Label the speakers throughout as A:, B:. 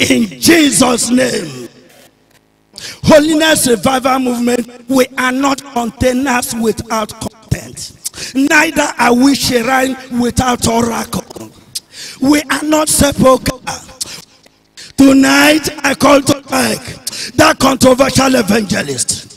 A: in Jesus' name. Holiness Revival Movement, we are not containers without content. Neither are we shrine without oracle. We are not sepulchre. Tonight, I call to back that controversial evangelist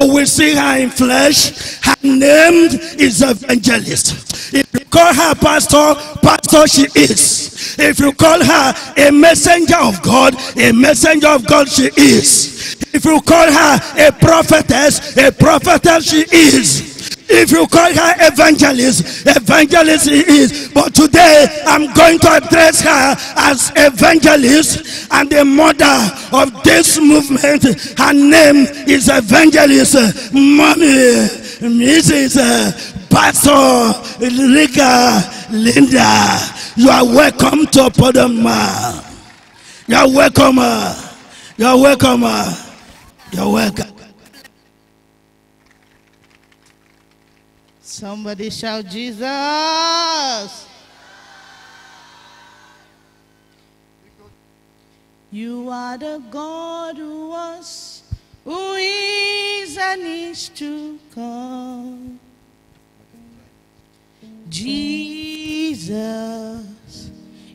A: You will see her in flesh. Her name is evangelist. If you call her pastor, pastor she is. If you call her a messenger of God, a messenger of God she is. If you call her a prophetess, a prophetess she is. If you call her evangelist, evangelist is. But today I'm going to address her as evangelist and the mother of this movement. Her name is evangelist mommy, Mrs. Uh, Pastor Liga Linda. You are welcome to Podoma. You are welcome. Uh, you are welcome. Uh, you are welcome.
B: Somebody shout, Jesus. You are the God who was, who is, and is to come. Jesus,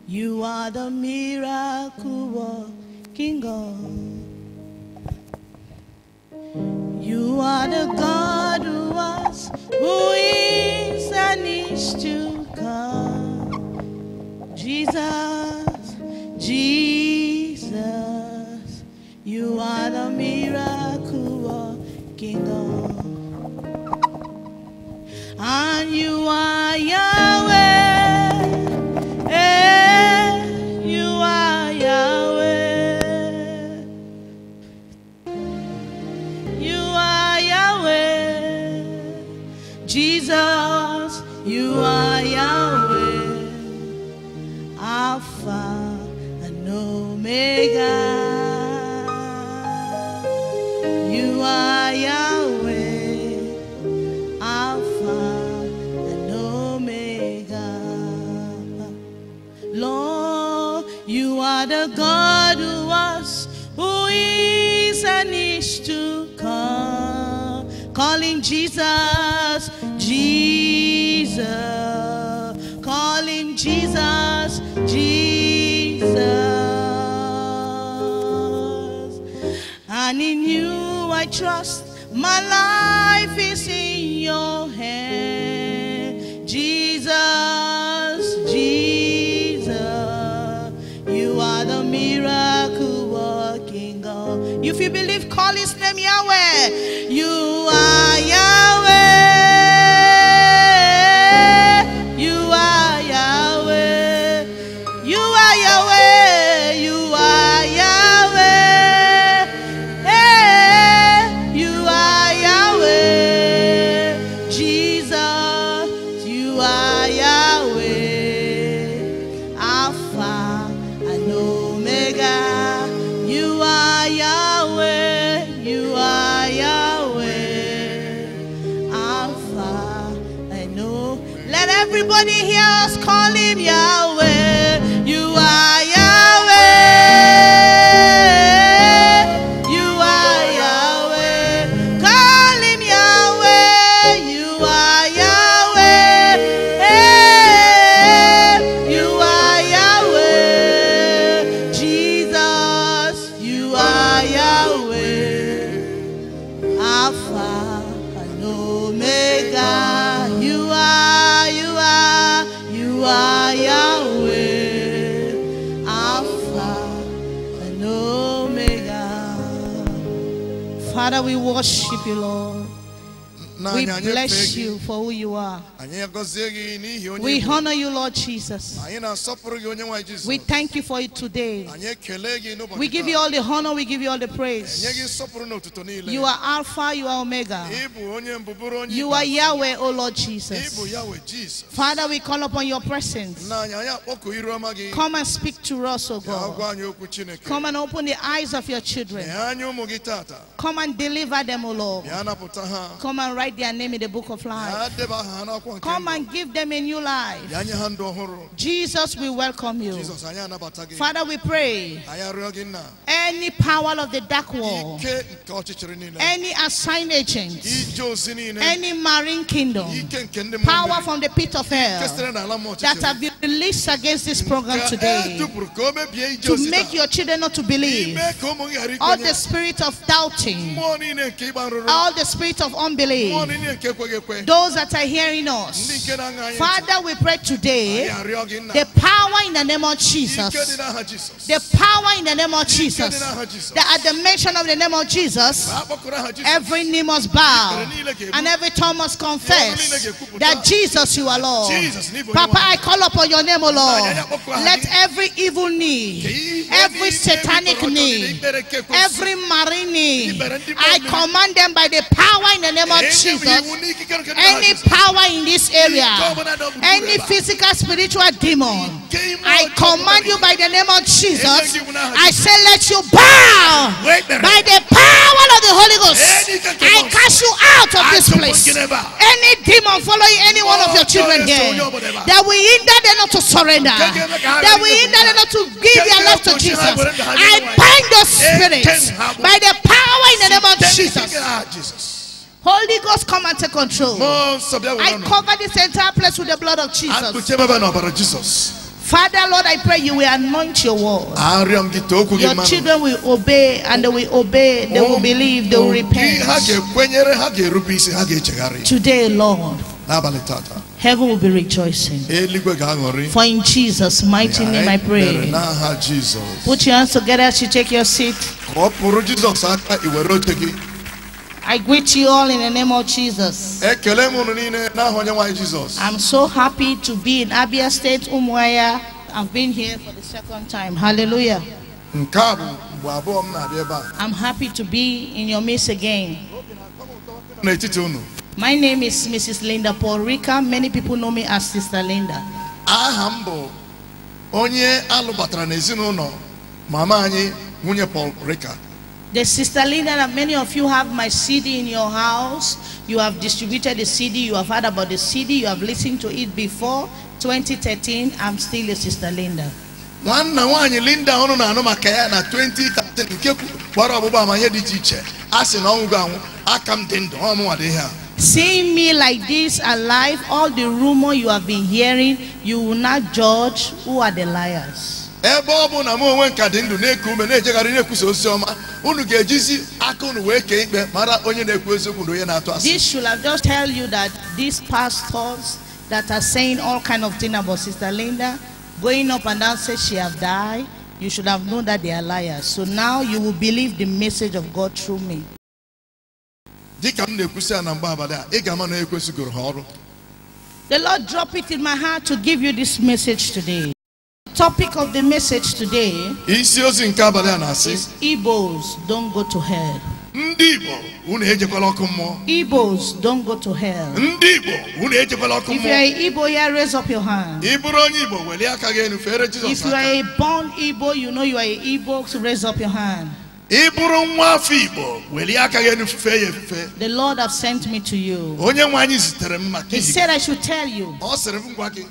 B: you are the miracle working God. You are the God who was, who is, and is to come. Jesus, Jesus, you are the miracle working And you are Yahweh. Jesus, you are Yahweh, Alpha and Omega. You are Yahweh, Alpha and Omega. Lord, you are the God who was, who is, and is to come. Calling Jesus Jesus. Calling Jesus, Jesus. And in you I trust. My life is in your hand. Jesus, Jesus. You are the miracle working God. If you believe, call his name Yahweh. You
C: bless you
B: for who you are. We honor you, Lord Jesus. We thank you for it today.
C: We give you all the honor,
B: we give you all the praise. You are Alpha, you are Omega.
C: You are Yahweh, O Lord Jesus. Father, we
B: call upon your presence. Come and speak to us, O God. Come and open the eyes of your children. Come and deliver them, O Lord. Come and write their name in the book of life. Come and give them a new life. Jesus Jesus, we welcome you. Father, we pray. Any power of the dark wall, any assigned agent, any marine kingdom, power from the pit of hell that have been released against this program today to make your children not to believe, all the spirit of doubting, all the spirit of unbelief,
C: those that are hearing us. Father, we pray today the
B: power in the name of Jesus. The power in the name of Jesus. That at the mention of the name of Jesus, every knee must bow and every tongue must confess that Jesus you are Lord. Papa, I call upon your name, O Lord. Let every evil knee, every satanic knee, every marine knee, I command them by the power in the name of Jesus. Any power in this area, any physical, spiritual, demon. I command you by the name of Jesus. I say, let you bow by the power of the Holy Ghost. I cast you out of this place. Any demon following any one of your oh, children here
C: that
B: we hinder them not to surrender, that we hinder them not to give their life to Jesus. I bind those spirits by the power in the name of Jesus. Holy Ghost, come and take control. I cover this entire place with the blood of Jesus. Father, Lord, I pray you will anoint your word.
C: Your children
B: will obey and they will obey, they will believe, they will repent. Today, Lord, heaven will be rejoicing. For in Jesus' mighty name I pray. Put your hands together as you take your seat. I greet you all in the name of Jesus. I'm so happy to be in Abia State, Umuaya. I've been here for the second time. Hallelujah. I'm happy to be in your midst again.
C: My
B: name is Mrs. Linda Paul Rica. Many people know me as Sister Linda.
C: onye alụbatara n'ezinụlọ mama anyị nwunye Paul Rica.
B: The sister Linda, that many of you have my CD in your house. You have distributed the CD. You have heard about the CD. You have listened to it before. 2013, I'm still your sister Linda.
C: nwanna linda ọnụ na-anụ maka na 2013 nke gbara ọgbụgba amanye dị iche iche a sị na
B: Seeing me like this alive, all the rumor you have been hearing, you will not judge who are the liars
C: ebe ọ bụ na m onwe nka dị ndụ na-eku ume na-ejegharị na-ekwusa ozi ọma unu ga-ejizi aka unu wee kee ikpe mara onye na-ekwu eziokwu na onye na-atụ asị this
B: should have just tell you that these pastors that are saying all kind of thing about sister Linda going up and down say she have died you should have known that they are liars so now you will believe the message of God through me dịka m na-ekwusi na mgbe abalị a ị ga-ama na ekwesịgoro ha ọrụ the Lord drop it in my heart to give you this message today Topic of the message today isi ozi nke abalị a na-asị Igbos don't go to hell. Ndị Igbo unu ejekwala ọkụ mmụọ. Igbos don't go to hell. Ndị Igbo unu ejekwala ọkụ mmụọ. If you are Igbo ya raise up your hand. Ị bụrụ onye Igbo welie aka gị elu fere Jizọs aka. If you are a born Igbo you know you are a Igbo so raise up your hand. The Lord have sent me to you. He said I should tell you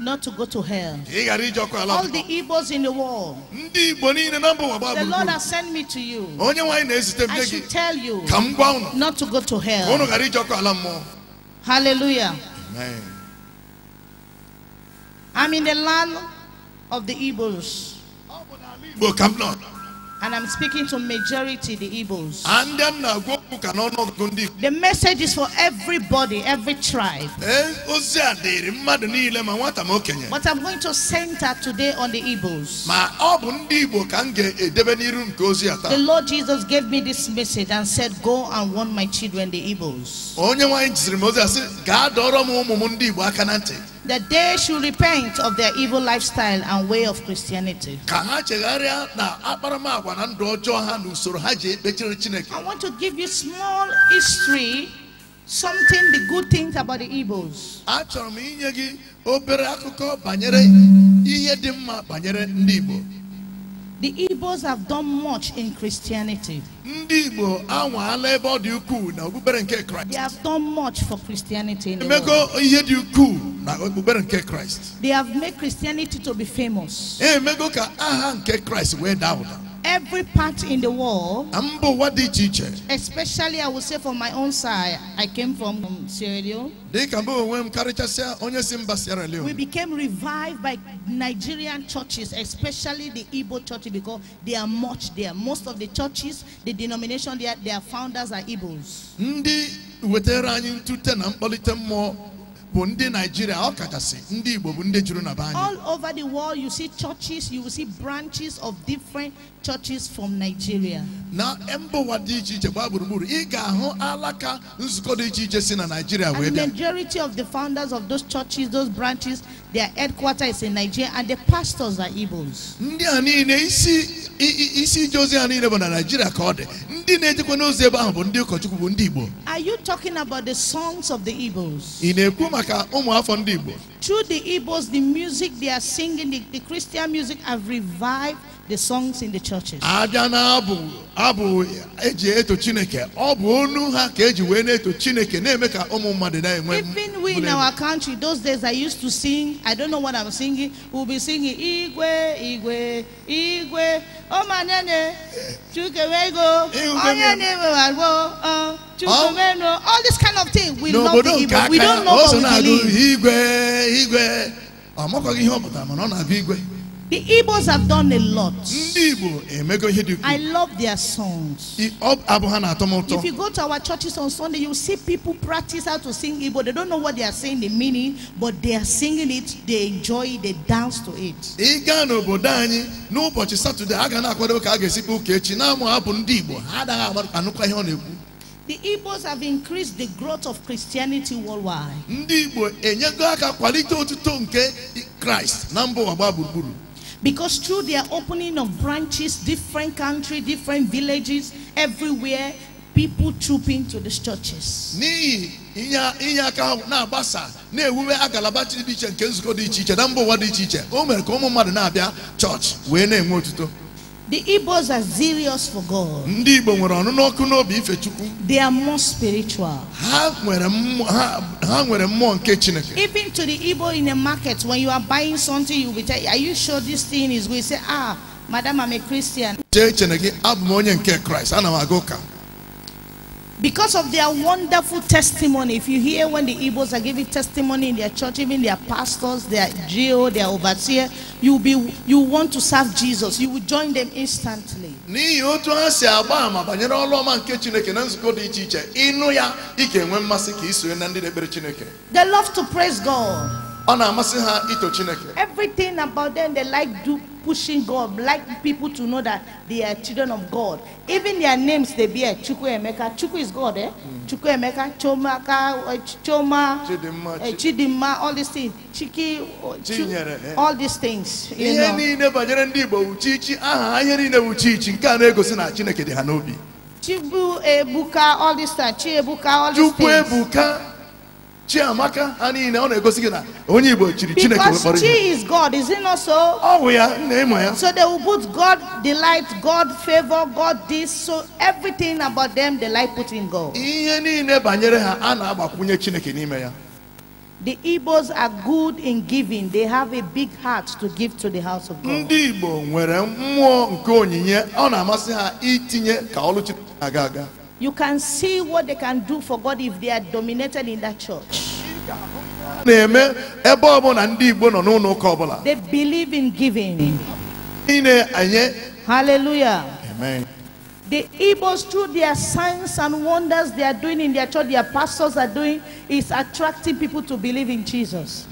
B: not to go to hell. All the evils in the world. The Lord has sent me to you. I should tell you not to go to hell. Hallelujah. Amen. I'm in the land of the Igbos. And I'm speaking to majority the Igbos. The message is for everybody, every tribe. Eh, but I'm going to center today on the Igbos. The Lord Jesus gave me this message and said, Go and warn my children, the Igbos that they should repent of their evil lifestyle and way of Christianity. I
C: want to give you small history,
B: something the good things about the evils. The Igbos have done much in Christianity. They have done much for Christianity. The they have made Christianity to be famous every part in the world, Especially, I would say from my own side, I came from Sierra Leone. We became revived by Nigerian churches, especially the Igbo church, because they are much there. Most of the churches, the denomination, their, their founders are Igbos. All over the world, you see churches, you will see branches of different churches from Nigeria. And the majority of the founders of those churches, those branches, their headquarters is in Nigeria and the pastors are Igbos. Ndị a niile isi isi ije ozi
C: niile bụ na Nigeria ka ọ dị. Ndị na-ejekwa n'ozi ebe ahụ bụ ndị ụkọchukwu bụ ndị Igbo.
B: Are you talking about the songs of the Igbos?
C: Ị na-ekwu maka ụmụ afọ ndị Igbo?
B: Through the Igbos, the music they are singing, the, the Christian music have revived the songs in the churches. abịa
C: na abụ abụ eji eto chineke ọ bụ onu ha ka eji wee na-eto chineke na-eme ka ụmụ mmadụ na-enwe
B: even we in our country those days i used to sing i don't know what i'm singing we'll be singing igwe igwe igwe omanene chukewego onye na-ewegharịgbo wego. Uh, all these kind of things we know the igbo we don't know what we believe.
C: igwe igwe ọ makọghị
B: ihe ọ pụtara mana ọ na-abịa igwe The Igbos have done a lot. Ndị Igbo emego ihe dị ukwuu. I love their songs. Abụ ha na-atọ m ụtọ. If you go to our churches on Sunday, you see people practice how to sing Igbo. They don't know what they are saying, the meaning, but they are singing it, they enjoy it, they dance to it.
C: Ị n'obodo anyị n'ụbọchị Satọde, a ga na-akwado ka a ga-esikwa ụka echi na-amụ abụ ndị Igbo. Ha anaghị anụkwa ihe ọ na-ekwu.
B: The Igbos have increased the growth of Christianity worldwide. Ndị Igbo enyego aka kwalite otuto nke Kraịst na mba ụwa gbaa gburugburu. Because through their opening of branches, different country, different villages, everywhere, people troop into these churches. inye
C: na dị dị na-abịa the Igbos are serious
B: for God. They are more spiritual. Ha nwere mmụọ Even to the Ibo in the market when you are buying something you be tell are you sure this thing is good? You say ah madam I'm a Christian.
C: Chee Chineke abụ m onye nke Christ ana m aga ụka
B: because of their wonderful testimony. If you hear when the Igbos are giving testimony in their church, even their pastors, their GO, their overseer, you be you want to serve Jesus. You will join them instantly. ịnụ ya They love to praise God. na Everything about them they like do pushing God, like people to know that they are children of God. Even their names they bear, Chuku Emeka. Chuku is God, eh? Mm. Chuku Emeka, Chomaka, uh, eh, Choma, Chidima, uh, eh, Chidima, all these things. Chiki, uh, oh, Ch eh? all these things. You know. Chibu Ebuka, all this time. Chi Ebuka, all these
C: things. Chiamaka ha niile ọ na-egosi gị na onye Igbo chiri Chineke wekpọrọ ihe. Because is
B: God, is not so? Ọ ya na ịmụ ya. So they will put God delight, God favor, God this, so everything about them they like putting God. Ihe niile banyere ha a
C: na-agbakwunye Chineke n'ime ya.
B: The Igbos are good in giving. They have a big heart to give to the house of God. Ndị
C: Igbo nwere mmụọ nke onyinye ọ na-amasị ha itinye ka ọlụ Chineke aga.
B: You can see what they can do for God if they are dominated in that church. They believe in giving. Hallelujah. Amen. The Igbos, through their signs and wonders they are doing in their church, their pastors are doing, is attracting people to believe in Jesus.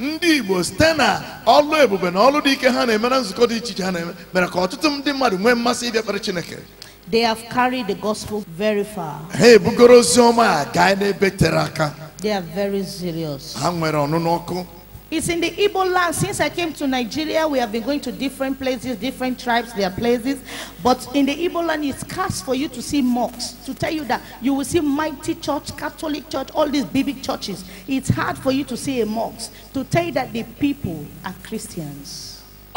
B: They have carried the gospel very far.
C: Hey, bugoro guy ne beteraka.
B: They are very serious.
C: Hanwere onunoko.
B: It's in the Igbo land. Since I came to Nigeria, we have been going to different places, different tribes, their places. But in the Igbo land, it's scarce for you to see mosques. To tell you that you will see mighty church, Catholic church, all these big, big churches. It's hard for you to see a mosque. To tell you that the people are Christians.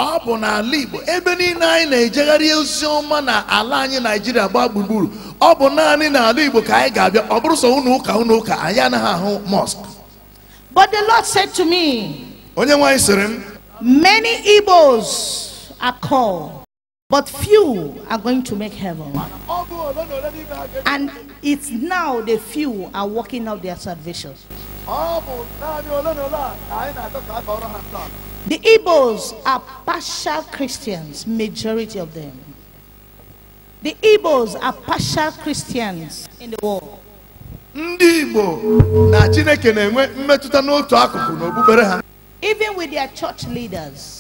C: ọ bụ n'ala Igbo ebe niile anyị na-ejegharị ozi ọma na ala anyị Naijiria gbaa gburugburu ọ bụ naanị n'ala Igbo ka anyị ga-abịa ọ bụrụ sọ ụnụ ụka ụnụ ụka anyị anaghị
B: ahụ mosque but the Lord said to me onye nwaanyị sịrị m many Igbos are called but few are going to make heaven and it's now the few are working out their salvation
C: The
B: Igbos are partial Christians, majority of them. The Igbos are partial Christians in the world. Even with their church leaders.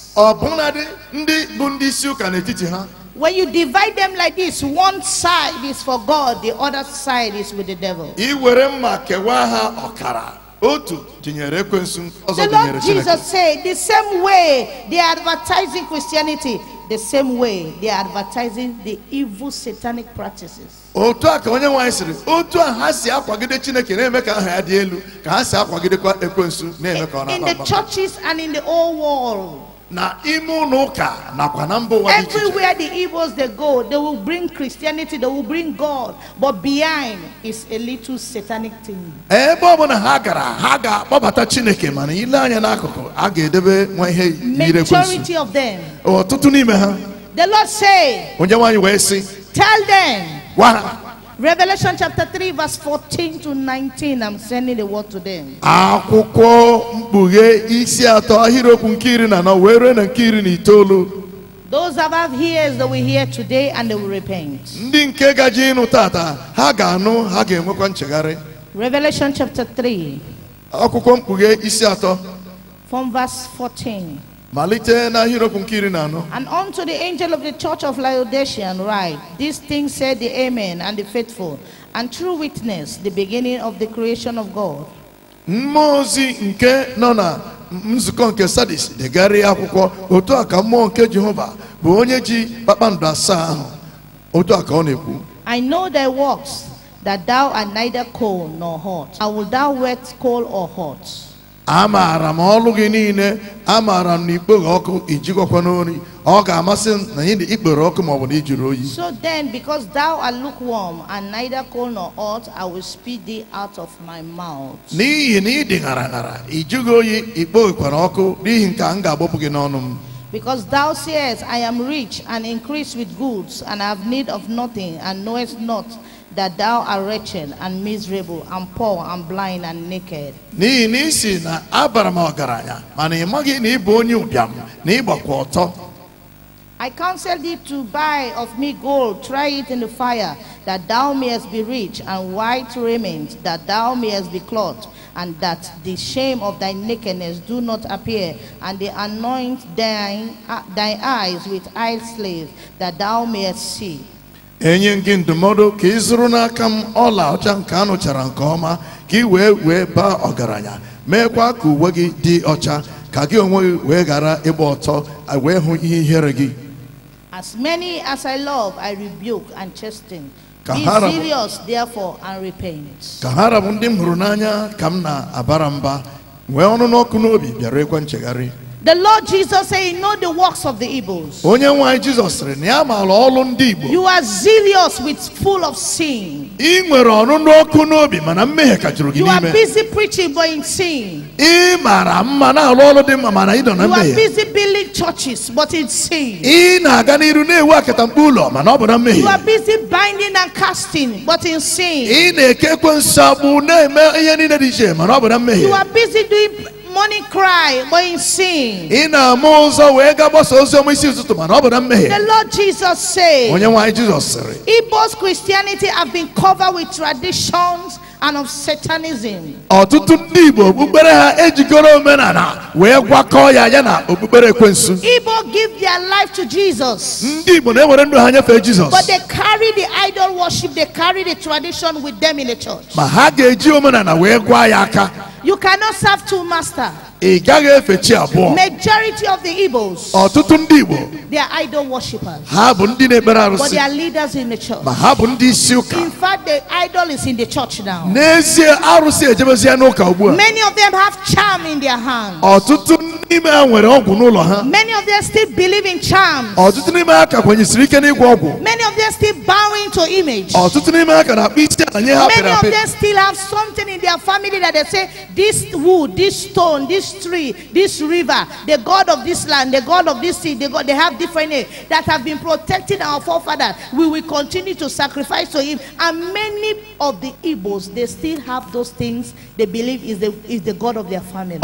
B: When you divide them like this, one side is for God, the other side is with the devil.
C: The Lord Jesus
B: said, the same way they are advertising Christianity, the same way they are advertising the evil satanic practices. In the churches and in the whole world, Everywhere the evils they go, they will bring Christianity, they will bring God, but behind is a little satanic thing. Majority of them. The Lord say, Tell them. Revelation chapter 3 verse 14 to 19 I'm sending the word to them.
C: Akwụkwọ mkpughe isi atọ ahịrịokwu nke iri na anọ wee ruo na nke iri na itoolu.
B: Those above have ears that we hear today and they will repent.
C: Ndị nke gaji ịnụ tata ha ga-anụ ha ga-enwekwa nchegharị.
B: Revelation chapter 3. Akwụkwọ mkpughe isi atọ. From verse 14.
C: And unto
B: the angel of the church of Laodicea write, These things said the Amen and the faithful and true witness, the beginning of the creation of God.
C: nke nzukọ nke Sadis degharịa akwụkwọ otu a ka mmụọ nke Jehova bụ onye ji kpakpando asaa ahụ otu a ka ọ na-ekwu.
B: I know thy works, that thou art neither cold nor hot. I will thou wet cold or hot
C: m ọlụ gị niile m na ọkụ ijikọkwa n'ori ọ ga-amasị m na ikpere ọkụ na ijiri oyi so
B: then because thou art lukewarm and neither cold nor hot i will spit thee out of my mouth
C: n'ihi na ị ṅara ṅara ijighị oyi ikpoghekwara ọkụ n'ihi nke a m gị n'ọnụ m
B: Because thou sayest, I am rich and increase with goods, and I have need of nothing, and knowest not that thou art wretched and miserable and poor and blind and naked. ị ị counsel thee to buy of me gold, try it in the fire, that thou mayest be rich, and white raiment, that thou mayest be clothed, and that the shame of thy nakedness do not appear, and they anoint thine, uh, thy eyes with eye slaves, that thou mayest see.
C: enye gị ndụmọdụ ka ị zụrụ n'aka m ọla ọcha nke a nụchara nke ọma ka ị wee wee baa ọgaranya meekwa ka uwe gị dị ọcha ka gị onwe gị wee ghara ịgba ọtọ wee hụ ihe ihere gị
B: As many as I love, I rebuke and chasten. Be serious, therefore, and repent.
C: Ka ha rabụ ndị m hụrụ n'anya ka m na-abara mba nwee ọnụ n'ọkụ n'obi bịara ekwe nchegharị
B: The Lord Jesus said, know the works of the evils." You are zealous with full of sin.
C: mana You are busy
B: preaching but in sin.
C: na You are
B: busy building churches but in sin.
C: mana You
B: are busy binding and casting but in sin.
C: mana You are
B: busy doing money cry, but in sin. Ị na-ama ụzọ
C: wee ga gbasa ozi na mmehie. The
B: Lord Jesus said. Onye nwe jesus sịrị. Igbo's Christianity have been covered with traditions and of Satanism.
C: Ọtụtụ ndị Igbo okpukpere ha ejikọrọ omenala wee gwakọọ ya ya na okpukpere ekwensu.
B: Igbo give their life to Jesus. Ndị
C: Igbo na-ewere ndụ ha nyefee But
B: they carry the idol worship, they carry the tradition with them in the church.
C: Ma ha ga-eji omenala wee gwa ya aka.
B: You cannot serve two masters.
C: Majority of the Igbos.
B: They are idol worshippers.
C: But they are
B: leaders in the church.
C: In
B: fact the idol is in the church now. Many of them have charm in their hands
C: many
B: of them still believe in charms many of them still bowing to image many
C: of them
B: still have something in their family that they say this wood this stone this tree this river the god of this land the god of this sea the god, they have different names that have been protecting our forefathers we will continue to sacrifice to him and many of the Igbos they still have those things they believe is the is the god of their family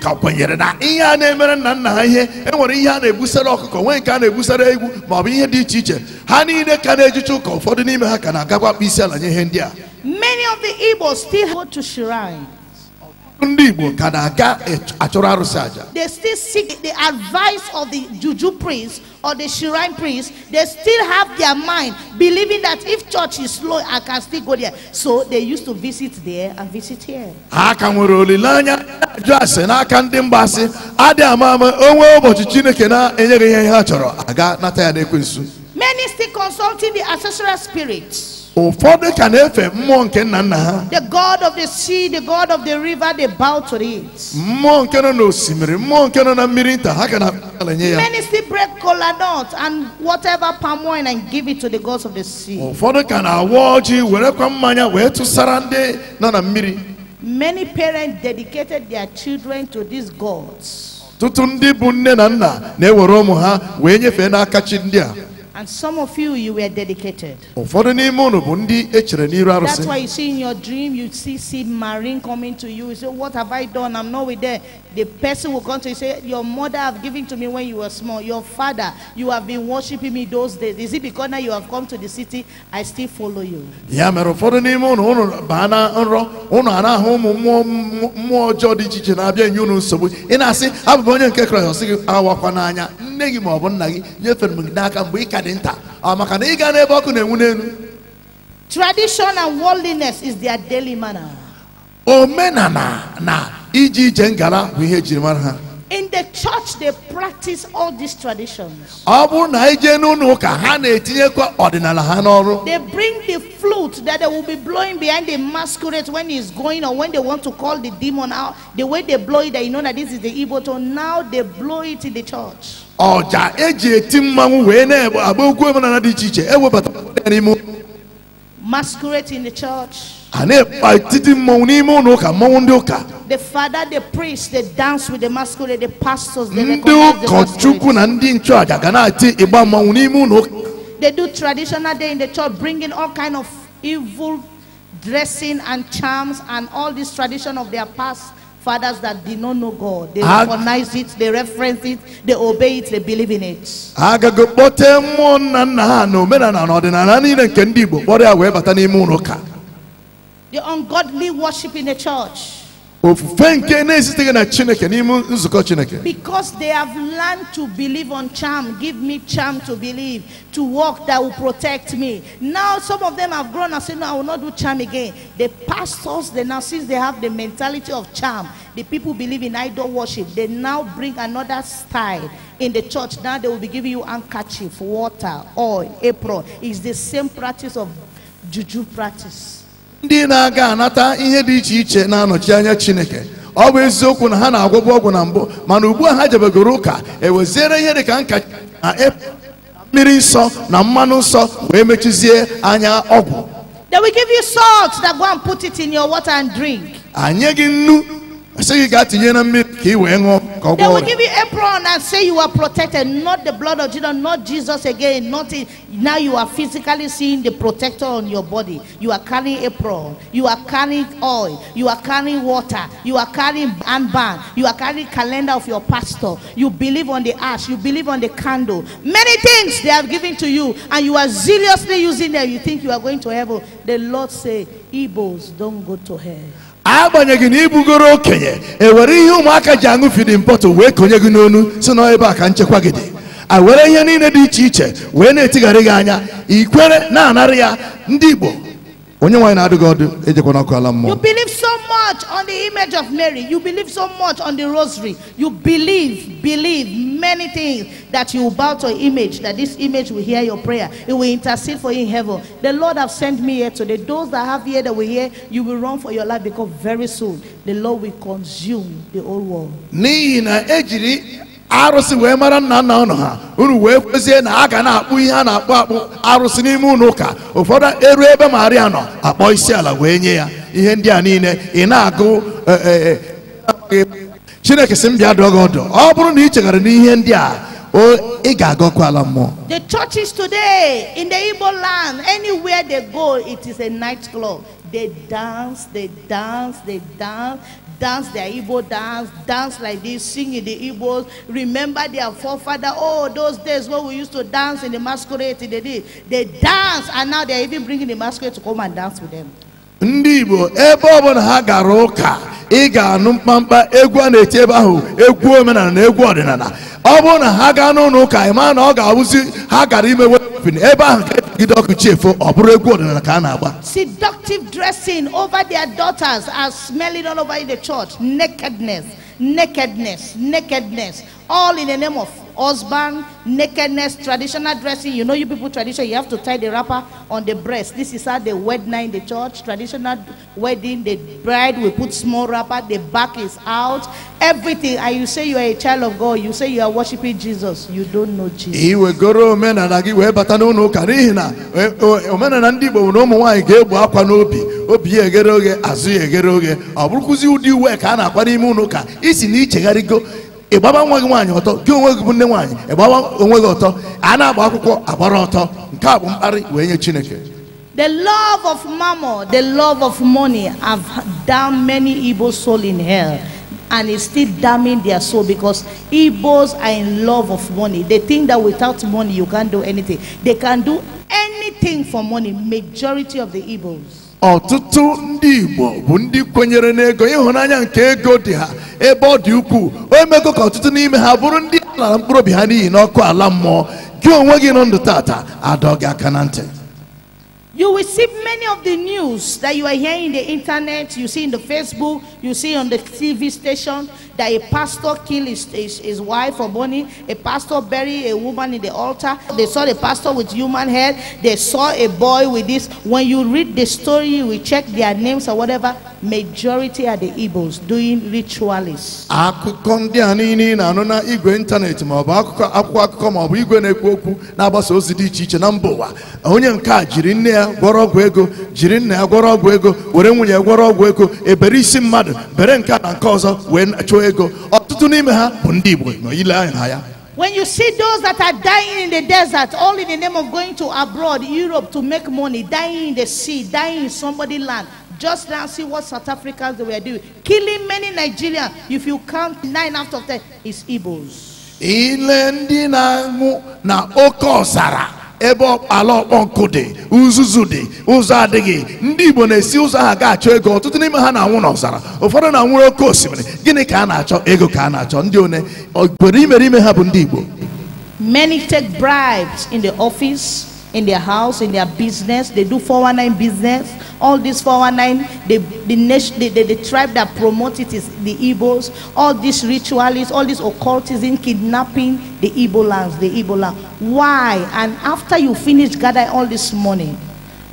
C: ka kwenyere na
B: ihe a na-emere
C: nna nna ha ihe e nwere ihe a na-ebusara ọkụkọ nwee nke a na-ebusara egwu ma ọ bụ ihe dị iche iche ha niile ka na-ejicha ụka ụfọdụ n'ime ha ka na-agakwa akpa isi ala nye ihe ndị a ndị igbo ka na-aga achọrọ arụsị aja
B: they still seek the advice of the juju priest or the shrine priest they still have their mind believing that if church is slow i can still go there so they used to visit there and visit here
C: ha ka nwere olileanya ajụ ase n'aka ndị mba adị ama ama onwe ụbọchị chineke na-enyeghị ihe ha chọrọ aga nata ya n'ekwensu
B: many still consulting the ancestral spirits
C: ụfọdụ ka na-efe mmụọ nke nna nna ha
B: the god of the sea the god of the river they bow to it
C: mmụọ nke nọ n'osimiri mmụọ nke nọ na mmiri nta ha ka na-ala ya many
B: still break cola nut and whatever palm wine and give it to the gods of the sea
C: ụfọdụ ka na-awa ọjị werekwa mmanya wee tụsara ndị nọ na mmiri
B: many parents dedicated their children to these gods ọtụtụ ndị
C: bụ nne na nna na-ewere ụmụ ha wee nyefee n'aka chi ndị a
B: and some of you, you were dedicated.
C: That's why you
B: see in your dream, you see see marine coming to you. You say, what have I done? I'm not with them. The person will come to you say, your mother have given to me when you were small. Your father, you have been worshiping me those days. Is it because now you have come to the city, I still follow you?
C: Ya mere ụfọdụ n'ime unu unu baa na nrọ unu anahụ ụmụ mmụọ mmụọ ọjọọ dị iche iche na-abịa enye unu nsogbu ị na-asị abụ m onye nke Kraịst ọ sị gị awakwa n'anya nne gị ma ọ bụ nna gị nyefere m gị n'aka mgbe ị ka dị nta ọ maka na ịga n'ebe ọkụ na-enwu n'elu
B: tradition and worldliness is their daily manner
C: omenala na iji ije ngala bụ ihe ejiri mara ha
B: In the church, they practice all these traditions. They bring the flute that they will be blowing behind the masquerade when it's going or when they want to call the demon out. The way they blow it, you know that this is the evil tone. Now they blow it in the church.
C: ọja eji eti mmanwụ wee na-agba okwu dị iche iche n'ime
B: masquerade in the church
C: a na-ekpa etiti mmanwụ n'ime ụlọ ụka mmanwụ ndị ụka
B: the father, the priest, they dance with the masquerade, the pastors, they ndị They do traditional day in the church, bringing all kind of evil dressing and charms and all this tradition of their past fathers that did not know God. They recognize it, they reference it, they obey it, they believe in it. The ungodly worship in the church because they have learned to believe on charm give me charm to believe to walk that will protect me now some of them have grown and said, no i will not do charm again the pastors they now since they have the mentality of charm the people believe in idol worship they now bring another style in the church now they will be giving you handkerchief water oil apron it's the same practice of juju practice
C: ndị na-aga anata ihe dị iche iche na-anọchi anya chineke ọ bụ eziokwu na ha na-agwọbụ ọgwụ na mbụ mana ugbu a ha jebegoro ụka eweziere ihe dị ka nka na mmiri nsọ na mmanụ nsọ wee mechizie anya ọgwụ anyị gị nnu sị gị gaa tinye na mmiri They will give
B: you apron and say you are protected. Not the blood of Jesus, not Jesus again. Not in, now you are physically seeing the protector on your body. You are carrying apron. You are carrying oil. You are carrying water. You are carrying band. You are carrying calendar of your pastor. You believe on the ash. You believe on the candle. Many things they have given to you, and you are zealously using them. You think you are going to heaven. The Lord say, "Ebos don't go to hell."
C: agbanyeghị na ibugoro okenye ewere ihe ụmụaka ji aṅụ fidin bọtụl wee konye gị n'onu si na ebe a ka nchekwa gị dị a were ihe niile dị iche iche wee na-etigharị gị anya ikwere na-anara ya ndị Igbo onye nwanyị na-adịghị ọdụ ejekwana ọkụ ala mmụọ you
B: believe so much on the image of Mary you believe so much on the rosary you believe believe many things that you bow to image that this image will hear your prayer it will intercede for you in heaven the Lord have sent me here today those that have here that will hear you will run for your life because very soon the Lord will consume the whole world
C: n'ihi na ejiri arụsị wee mara nna nna ụnụ ha unu wee kwezie na a ga na-akpụ ihe a na-akpụ akpụ arụsị n'ime ụlọ ụka ụfọdụ eru ebe maria nọ akpọ isi ala wee nye ya ihe ndị a niile ị na-agụ e, e, e, chineke si mbịa dụọ gị ọdụ ọ bụrụ na ị cheghara n'ihe ndị a ị ga-agọkwa ala mmụọ
B: the churches today in the Igbo land anywhere they go it is a night club they dance they dance they dance dance their Igbo dance, dance like this, sing in the Igbos, remember their forefather. Oh, those days when we used to dance in the masquerade They did. They dance, and now they're even bringing the masquerade to come and dance with them.
C: ndị igbo ebe ọbụla ha gara ụka ị ga-anụ mkpamkpa egwu a na-eti ebe ahụ egwu omenala na egwu ọdịnala ọ bụrụ na ha gaa n'ụlọ ụka ị na ọ ga-abụzi ha gara ime ebe ahụ e seductive
B: dressing over their daughters are smelling all over the church nakedness nakedness nakedness all in the name of husband, nakedness, traditional dressing. You know, you people tradition, you have to tie the wrapper on the breast. This is how they wed now in the church. Traditional wedding, the bride will put small wrapper, the back is out. Everything. And you say you are a child of God. You say you are worshiping Jesus. You don't know Jesus.
C: omenala ndị igbo nwere ụmụ nwaanyị ga-egbu no n'obi obi ya eghere oghe azụ no eghere oghe ọ bụrụkwụzi ụdị uwe ka a na-akwa n'ime ụlọ ụka isi na ichegharịgo ịgbaba nwa gị nwaanyị ọtọ gị onwe gị bụ nne nwaanyị ịgbaba onwe gị ọtọ a na-agba akwụkwọ agbara ọtọ nke a bụ mkparị wee nye chineke
B: The love of mammon, the love of money have damned many Igbo soul in hell. And it's still damning their soul because Igbos are in love of money. They think that without money you can't do anything. They can do anything for money, majority of the Igbos.
C: ọtụtụ ndị Igbo bụ ndị kwenyere n'ego ịhụnanya nke ego dị ha ebe ọ dị ukwuu o mego ka ọtụtụ n'ime ha bụrụ ndị a mkpụrụ obi ha n'ihi n'ọkụ ala mmụọ gị onwe gị nọ ndụ tata adọ gị aka na ntị
B: You will see many of the news that you are hearing in the internet, you see in the Facebook, you see on the TV station that a pastor killed his, his, his wife or bunny, a pastor buried a woman in the altar. They saw the pastor with human head, they saw a boy with this. When you read the story, you will check their names or whatever. Majority are the Igbos doing ritualists.
C: na na-agbasa ozi dị iche iche na mba ụwa onye nke a jiri nne ya gwọrọ ọgwụ ego jiri nna ya gwọrọ ọgwụ ego were nwunye ya gwọrọ ọgwụ ego ebere isi mmadụ bere nke na nke ọzọ wee chụọ ego ọtụtụ n'ime ha bụ ndị igbo nọ ile anya na ya
B: When you see those that are dying in the desert, all in the name of going to abroad, Europe to make money, dying in the sea, dying in somebody's land, just now see what South Africans they were doing. Killing many Nigerians, if you count nine out of ten, is Igbos.
C: Ile ndị na-anwụ ebe ala ọkpọ nkụ dị uzuzu dị ụzọ adịghị ndị Igbo na-esi ụzọ ahụ ga-achọ ego ọtụtụ n'ime ha na-anwụ n'ọzara ụfọdụ na nwere oke osimiri gịnị ka a na-achọ ego ka a na-achọ ndị one obodo imere ime ha bụ ndị Igbo
B: many take bribes in the office in their house, in their business. They do 419 business. All these 419, the, the, the, the, the tribe that promotes it is the Igbos. All these ritualists, all this occultism, kidnapping the Igbo lands, the Igbo land. Why? And after you finish gathering all this money,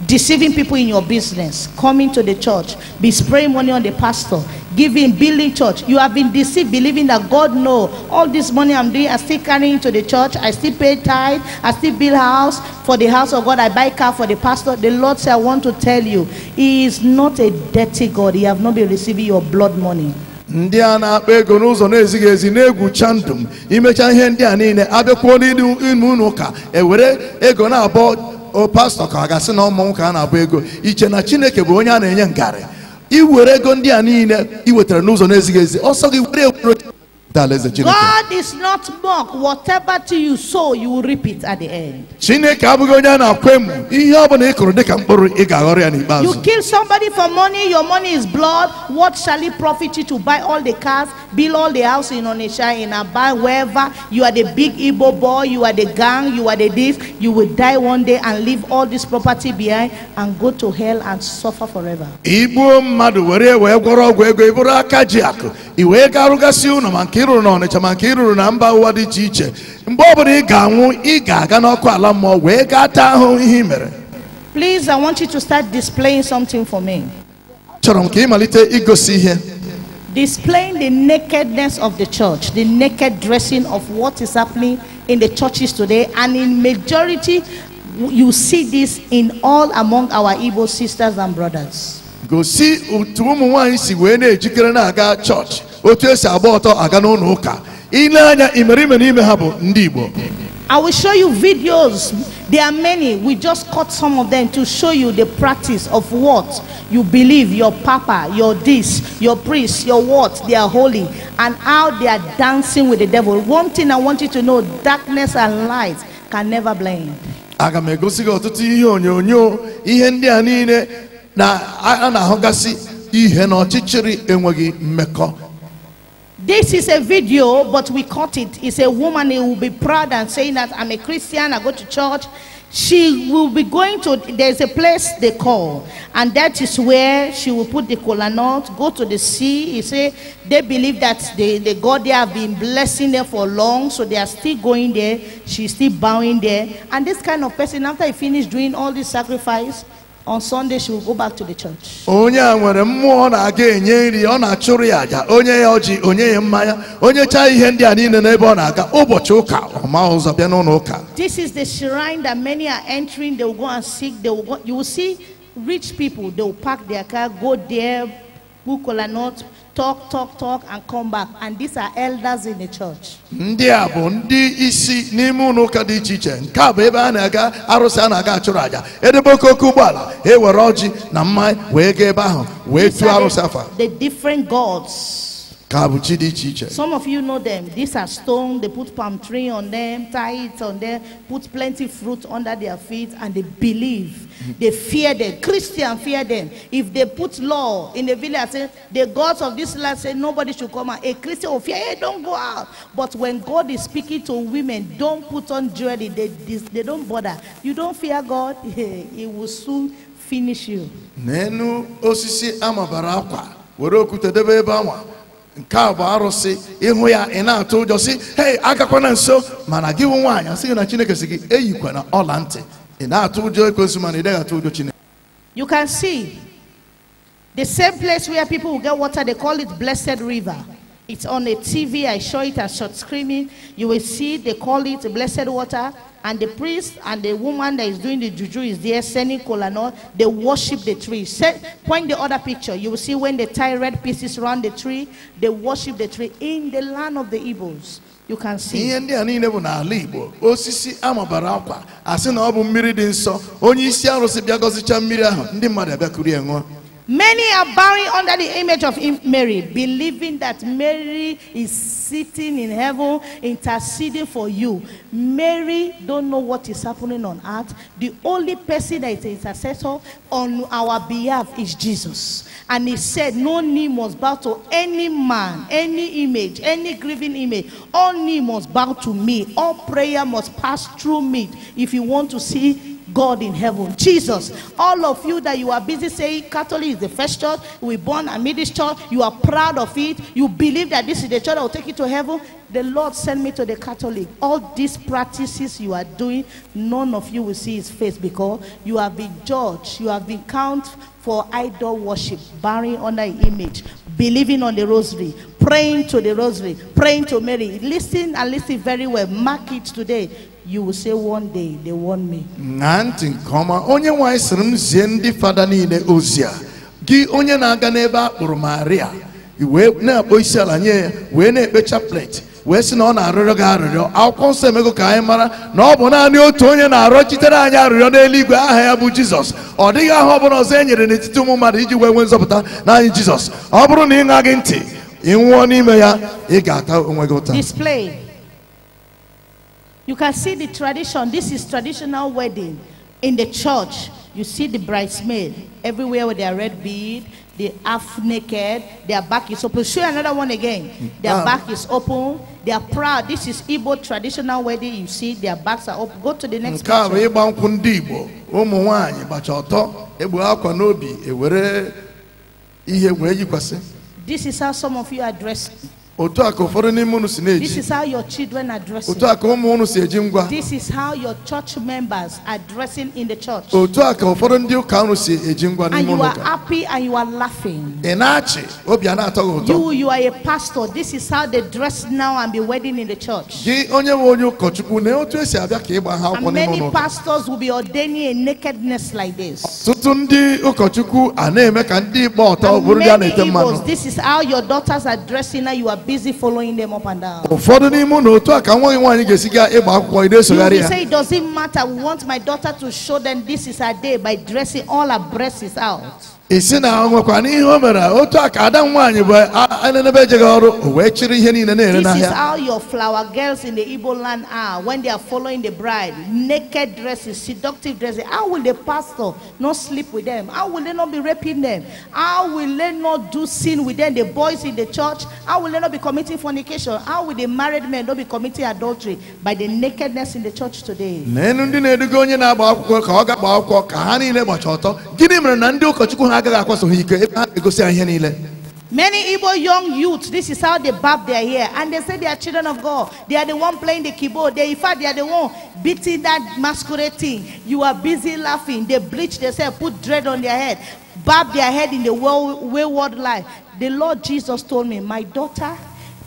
B: deceiving people in your business, coming to the church, be spraying money on the pastor, giving, building church. You have been deceived, believing that God know all this money I'm doing, I still carry into the church, I still pay tithe, I still build house for the house of God, I buy car for the pastor. The Lord said, I want to tell you, He is not a dirty God. He have not been receiving your blood money.
C: ndị a na-akpa ego n'ụzọ na-ezighị ezi na-egwucha ndụ imecha ihe ndị a niile abịakwuo n'ime unu ụka ewere ego na-abọ oh, pastọ ka ọ ga-asị na ụmụ nwoke a na-abụ ego iche na chineke bụ onye a na-enye ngarị were ego ndị a niile i wetara n'ụzọ na-ezighị ezi ọsọ gị were alaeze Chineke
B: God is not mock whatever to you sow you will reap it at the end
C: Chineke abụghị onye a na-akwa emu ihe ọ ị kụrụ dịka mkpụrụ ị ga-aghọrọ ya n'ikpeazụ You
B: kill somebody for money your money is blood what shall it profit you to buy all the cars build all the house in Onitsha in Aba wherever you are the big Igbo boy you are the gang you are the thief you will die one day and leave all this property behind and go to hell and suffer forever
C: Igbuo mmadụ were wee gwọrọ ọgwụ ego ị bụrụ aka ji akụ i wee garụgasị ụlọ ma nke na Ọnịcha na mba ụwa dị iche iche mgbe ọbụla ị ga-anwụ ị ga-aga n'ọkụ ala mmụọ wee gaa taa ihe mere
B: Please, I want you to start displaying something for me.
C: Chọrọ m ka ị malite igosi ihe.
B: Displaying the nakedness of the church, the naked dressing of what is happening in the churches today, and in majority, you see this in all among our Igbo sisters and brothers.
C: Gosi otu ụmụ nwanyị si wee na-ejikere na-aga chọọchị otu esi agba ọtọ aga n'ụlọ ụka ile anya imerime
B: n'ime ha bụ ndị igbo I will show you videos. There are many. We just cut some of them to show you the practice of what you believe your papa, your this, your priest, your what they are holy, and how they are dancing with the devil. One thing I want you to know darkness and light can never blend.
C: aga m egosi gị ọtụtụ ihe onyonyo ihe ndị a niile na a na-ahụgasị ihe na ọchịchịrị enweghị mmekọ
B: This is a video, but we caught it. It's a woman who will be proud and saying that I'm a Christian, I go to church. She will be going to, there's a place they call, and that is where she will put the cola nut, go to the sea. You see, they believe that the, the God there have been blessing them for long, so they are still going there. She's still bowing there. And this kind of person, after he finished doing all this sacrifice, on Sunday she will go back to the church.
C: Onye a nwere mmụọ na-aga enye nri ọ na-achụrụ ya aja onye ya ọjị onye ya mmanya onye chaa ihe ndị a niile n'ebe ọ na-aga ụbọchị ụka ọma ụzọ bịa n'ụlọ ụka.
B: This is the shrine that many are entering they will go and seek they will go you will see rich people they will pack their car go there. Bukola North, talk, talk, talk, and come back. And these are elders in the church.
C: Ndị a bụ ndị isi n'ime ụlọ ụka dị iche iche. Nke a bụ ebe a na-aga arụsị a na-aga achụrụ aja. Edebe oke oke ụgbọala, ewere ọjị na mmanya wee gaa ebe ahụ wee tụọ arụsị afa.
B: The different gods.
C: Some
B: of you know them. These are stone. They put palm tree on them, tie it on them, put plenty fruit under their feet, and they believe. They fear them. Christian fear them. If they put law in the village, say, the gods of this land say nobody should come out. A Christian will fear, hey, don't go out. But when God is speaking to women, don't put on jewelry. They, they, they don't bother. You don't fear God, He will soon finish you.
C: nke a bụ arụsị ịhụ ya ị na-atụ ụjọ si hei agakwa na nso mana gị bụ nwaanyị asị gị na chineke si gị eyikwa na ọla ntị ị na-atụ ụjọ ekwensu mana ị dịghị atụ ụjọ chineke
B: you can see the same place where people will get water they call it blessed river it's on a TV. I show it as short screaming. You will see they call it blessed water. And the priest and the woman that is doing the juju is there sending kolanol. They worship the tree. Set, point the other picture. You will see when they tie red pieces around the tree, they worship the tree in the land of the Igbos. You can see.
C: ndị a niile bụ n'ala Igbo, osisi amabara akwa, asị na ọ bụ mmiri dị nsọ, onye isi arụsị bịa gọzichaa mmiri ahụ, ndị mmadụ abịa kurie ṅụọ.
B: Many are bowing under the image of Mary, believing that Mary is sitting in heaven interceding for you. Mary don't know what is happening on earth. The only person that is intercessor on our behalf is Jesus. And he said, No knee must bow to any man, any image, any grieving image. All knee must bow to me. All prayer must pass through me if you want to see God in heaven. Jesus, all of you that you are busy saying Catholic is the first church, we born a middle church, you are proud of it, you believe that this is the church that will take you to heaven, the Lord sent me to the Catholic. All these practices you are doing, none of you will see his face because you have been judged, you have been counted for idol worship, on under image, believing on the rosary, praying to the rosary, praying to Mary. Listen and listen very well. Mark it today. you will say one day they warn me.
C: ṅaa ntị nke ọma onye nwanyị sịrị m zie ndị fada niile ozi gị onye na-aga n'ebe a kpụrụ maria wee na-akpọ isi ala nye ya wee na-ekpe chaplet wee sị na ọ na-arịrịọ gị arịrịọ akwụkwọ nsọ emego ka anyị mara na ọ bụ naanị otu onye na chitere anyị arịrịọ n'eluigwe aha ya bụ jizọs ọ dịghị aha ọbụla ọzọ e nyere n'etiti ụmụ mmadụ iji wee nwee nzọpụta n'anyị jizọs ọ bụrụ na ị gị ntị ị nwụọ n'ime ya ị ga-ata onwe gị ụta
B: You can see the tradition. This is traditional wedding in the church. You see the bridesmaid everywhere with their red bead. They half naked. Their back is open. Show another one again. Their um, back is open. They are proud. This is Igbo traditional wedding. You see their backs are open. Go to the next. Nke a bụ
C: ịgba ndị Igbo. Ụmụ nwaanyị gbacha ọtọ egbu akwa n'obi ewere ihe wee yikwasị.
B: This is how some of you are dressed.
C: This is
B: how your children are dressing.
C: This
B: is how your church members are dressing in the church.
C: And you are
B: happy and you are laughing.
C: You, you
B: are a pastor. This is how they dress now and be wedding in the church.
C: And many
B: pastors will be ordaining a nakedness like this.
C: And many na
B: this is how your daughters are dressing now. You are busy following them up and down.
C: ụfọdụ n'ime unu otu a ka nwa nwaanyị ga-esi gaa ịgba akwụkwọ ide sogharị ya. say
B: it doesn't matter we want my daughter to show them this is her day by dressing all her breasts out.
C: isi na nwekwa n'ihe o mere otu ada nwaanyị bụ ejeghị ọrụ o wee chịrị ihe niile na-ere n'ahịa This is how
B: your flower girls in the Igbo land are when they are following the bride naked dresses seductive dresses how will the pastor not sleep with them how will they not be raping them how will they not do sin with them the boys in the church how will they not be committing fornication how will the married men not be committing adultery by the nakedness in the church today
C: na enu ndị na-eduga onye na-agba akwụkwọ ka ọ ga-agba akwụkwọ ka ha niile gbacha ọtọ gịnị mere na ndị ụkọchukwu ha agaghị akwaso ebe ha na-egosi ihe niile
B: Many Igbo young youths, this is how they barb their hair. And they say they are children of God. They are the one playing the keyboard. They, in fact, they are the one beating that masquerading. You are busy laughing. They bleach themselves, put dread on their head, barb their head in the world, wayward life. The Lord Jesus told me, My daughter,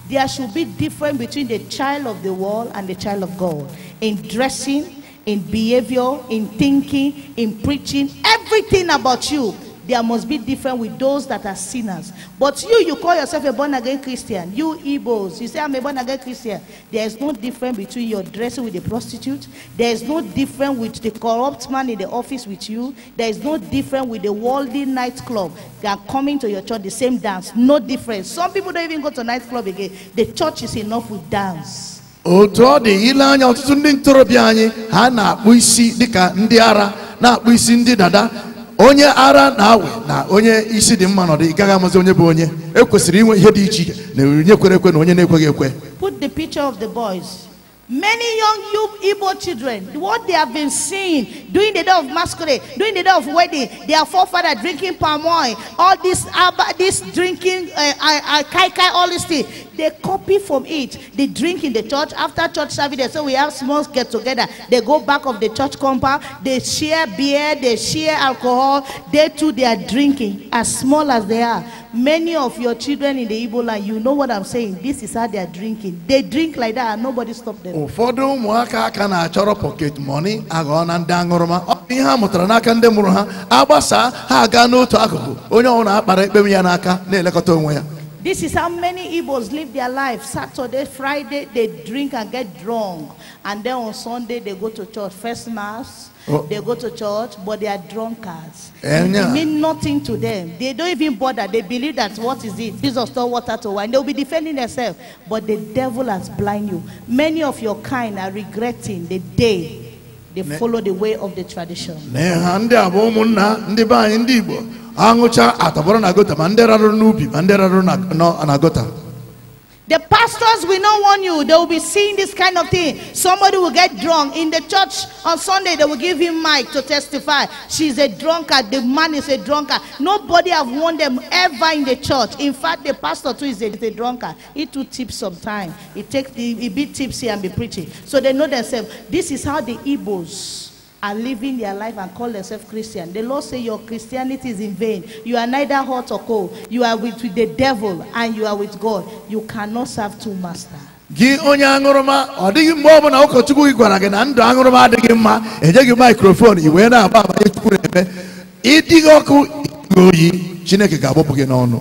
B: there should be difference between the child of the world and the child of God in dressing, in behavior, in thinking, in preaching, everything about you there must be different with those that are sinners. But you, you call yourself a born again Christian. You Igbos, you say I'm a born again Christian. There is no difference between your dressing with a the prostitute. There is no difference with the corrupt man in the office with you. There is no difference with the worldly nightclub. They are coming to your church the same dance. No difference. Some people don't even go to nightclub again. The church is enough with dance.
C: otu ọ dị ile anya ọtụtụ ndị ntorobịa anyị ha na-akpụ isi dịka ndị ara na-akpụ isi ndị dada onye ara na-awe na onye isi dị mma nọdụ ị gaghị amazi onye bụ onye ekwesịrị inwe ihe dị iche iche na onye ekwe na onye na-ekweghị ekwe
B: put the picture Many young you Igbo children, what they have been seeing during the day of masquerade, during the day of wedding, their forefather drinking palm oil, all this, uh, this drinking, uh, uh, kai kai, all this thing, they copy from it. They drink in the church. After church service, they say we have small get together. They go back of the church compound. They share beer, they share alcohol. They too, they are drinking as small as they are. Many of your children in the Igbo land, you know what I'm saying. This is how they are drinking. They drink like that and nobody stop them.
C: ụfọdụ ụmụaka aka na-achọrọ pocket money aghọọ na ndị aṅụrụma ọ bụ ihe a mụtara n'aka ndị mụrụ ha agbasaa ha aga n'otu akụkụ onye ọbụla akpara ekpem ya n'aka na-elekọta onwe ya
B: This is how many Igbos live their life. Saturday, Friday, they drink and get drunk. And then on Sunday, they go to church. First mass, oh. they go to church, but they are drunkards. Eh, and it mean nothing to them. They don't even bother. They believe that what is it? Jesus told water to wine. They'll be defending themselves. But the devil has blinded you. Many of your kind are regretting the day they follow the way of the tradition. The pastors will not warn you. They will be seeing this kind of thing. Somebody will get drunk. In the church on Sunday, they will give him mic to testify. She's a drunkard. The man is a drunkard. Nobody have warned them ever in the church. In fact, the pastor too is a, is a drunkard. He too tips sometimes. He, take, he, he be tipsy and be preaching. So they know themselves. This is how the Igbos are living their life and call themselves Christian. The Lord say your Christianity is in vain. You are neither hot or cold. You are with, with the devil and you are with God. You cannot serve two masters.
C: gị onye aṅụrụma ọ dịghị mgbe ọ bụla ụkọchukwu gị gwara gị na ndụ aṅụrụma adịghị mma enyeghị mikrofon i wee na-agba amanye chukwu na-eme
B: ịdịghị ọkụ
C: oyi chineke ga-agbapụ gị n'ọnụ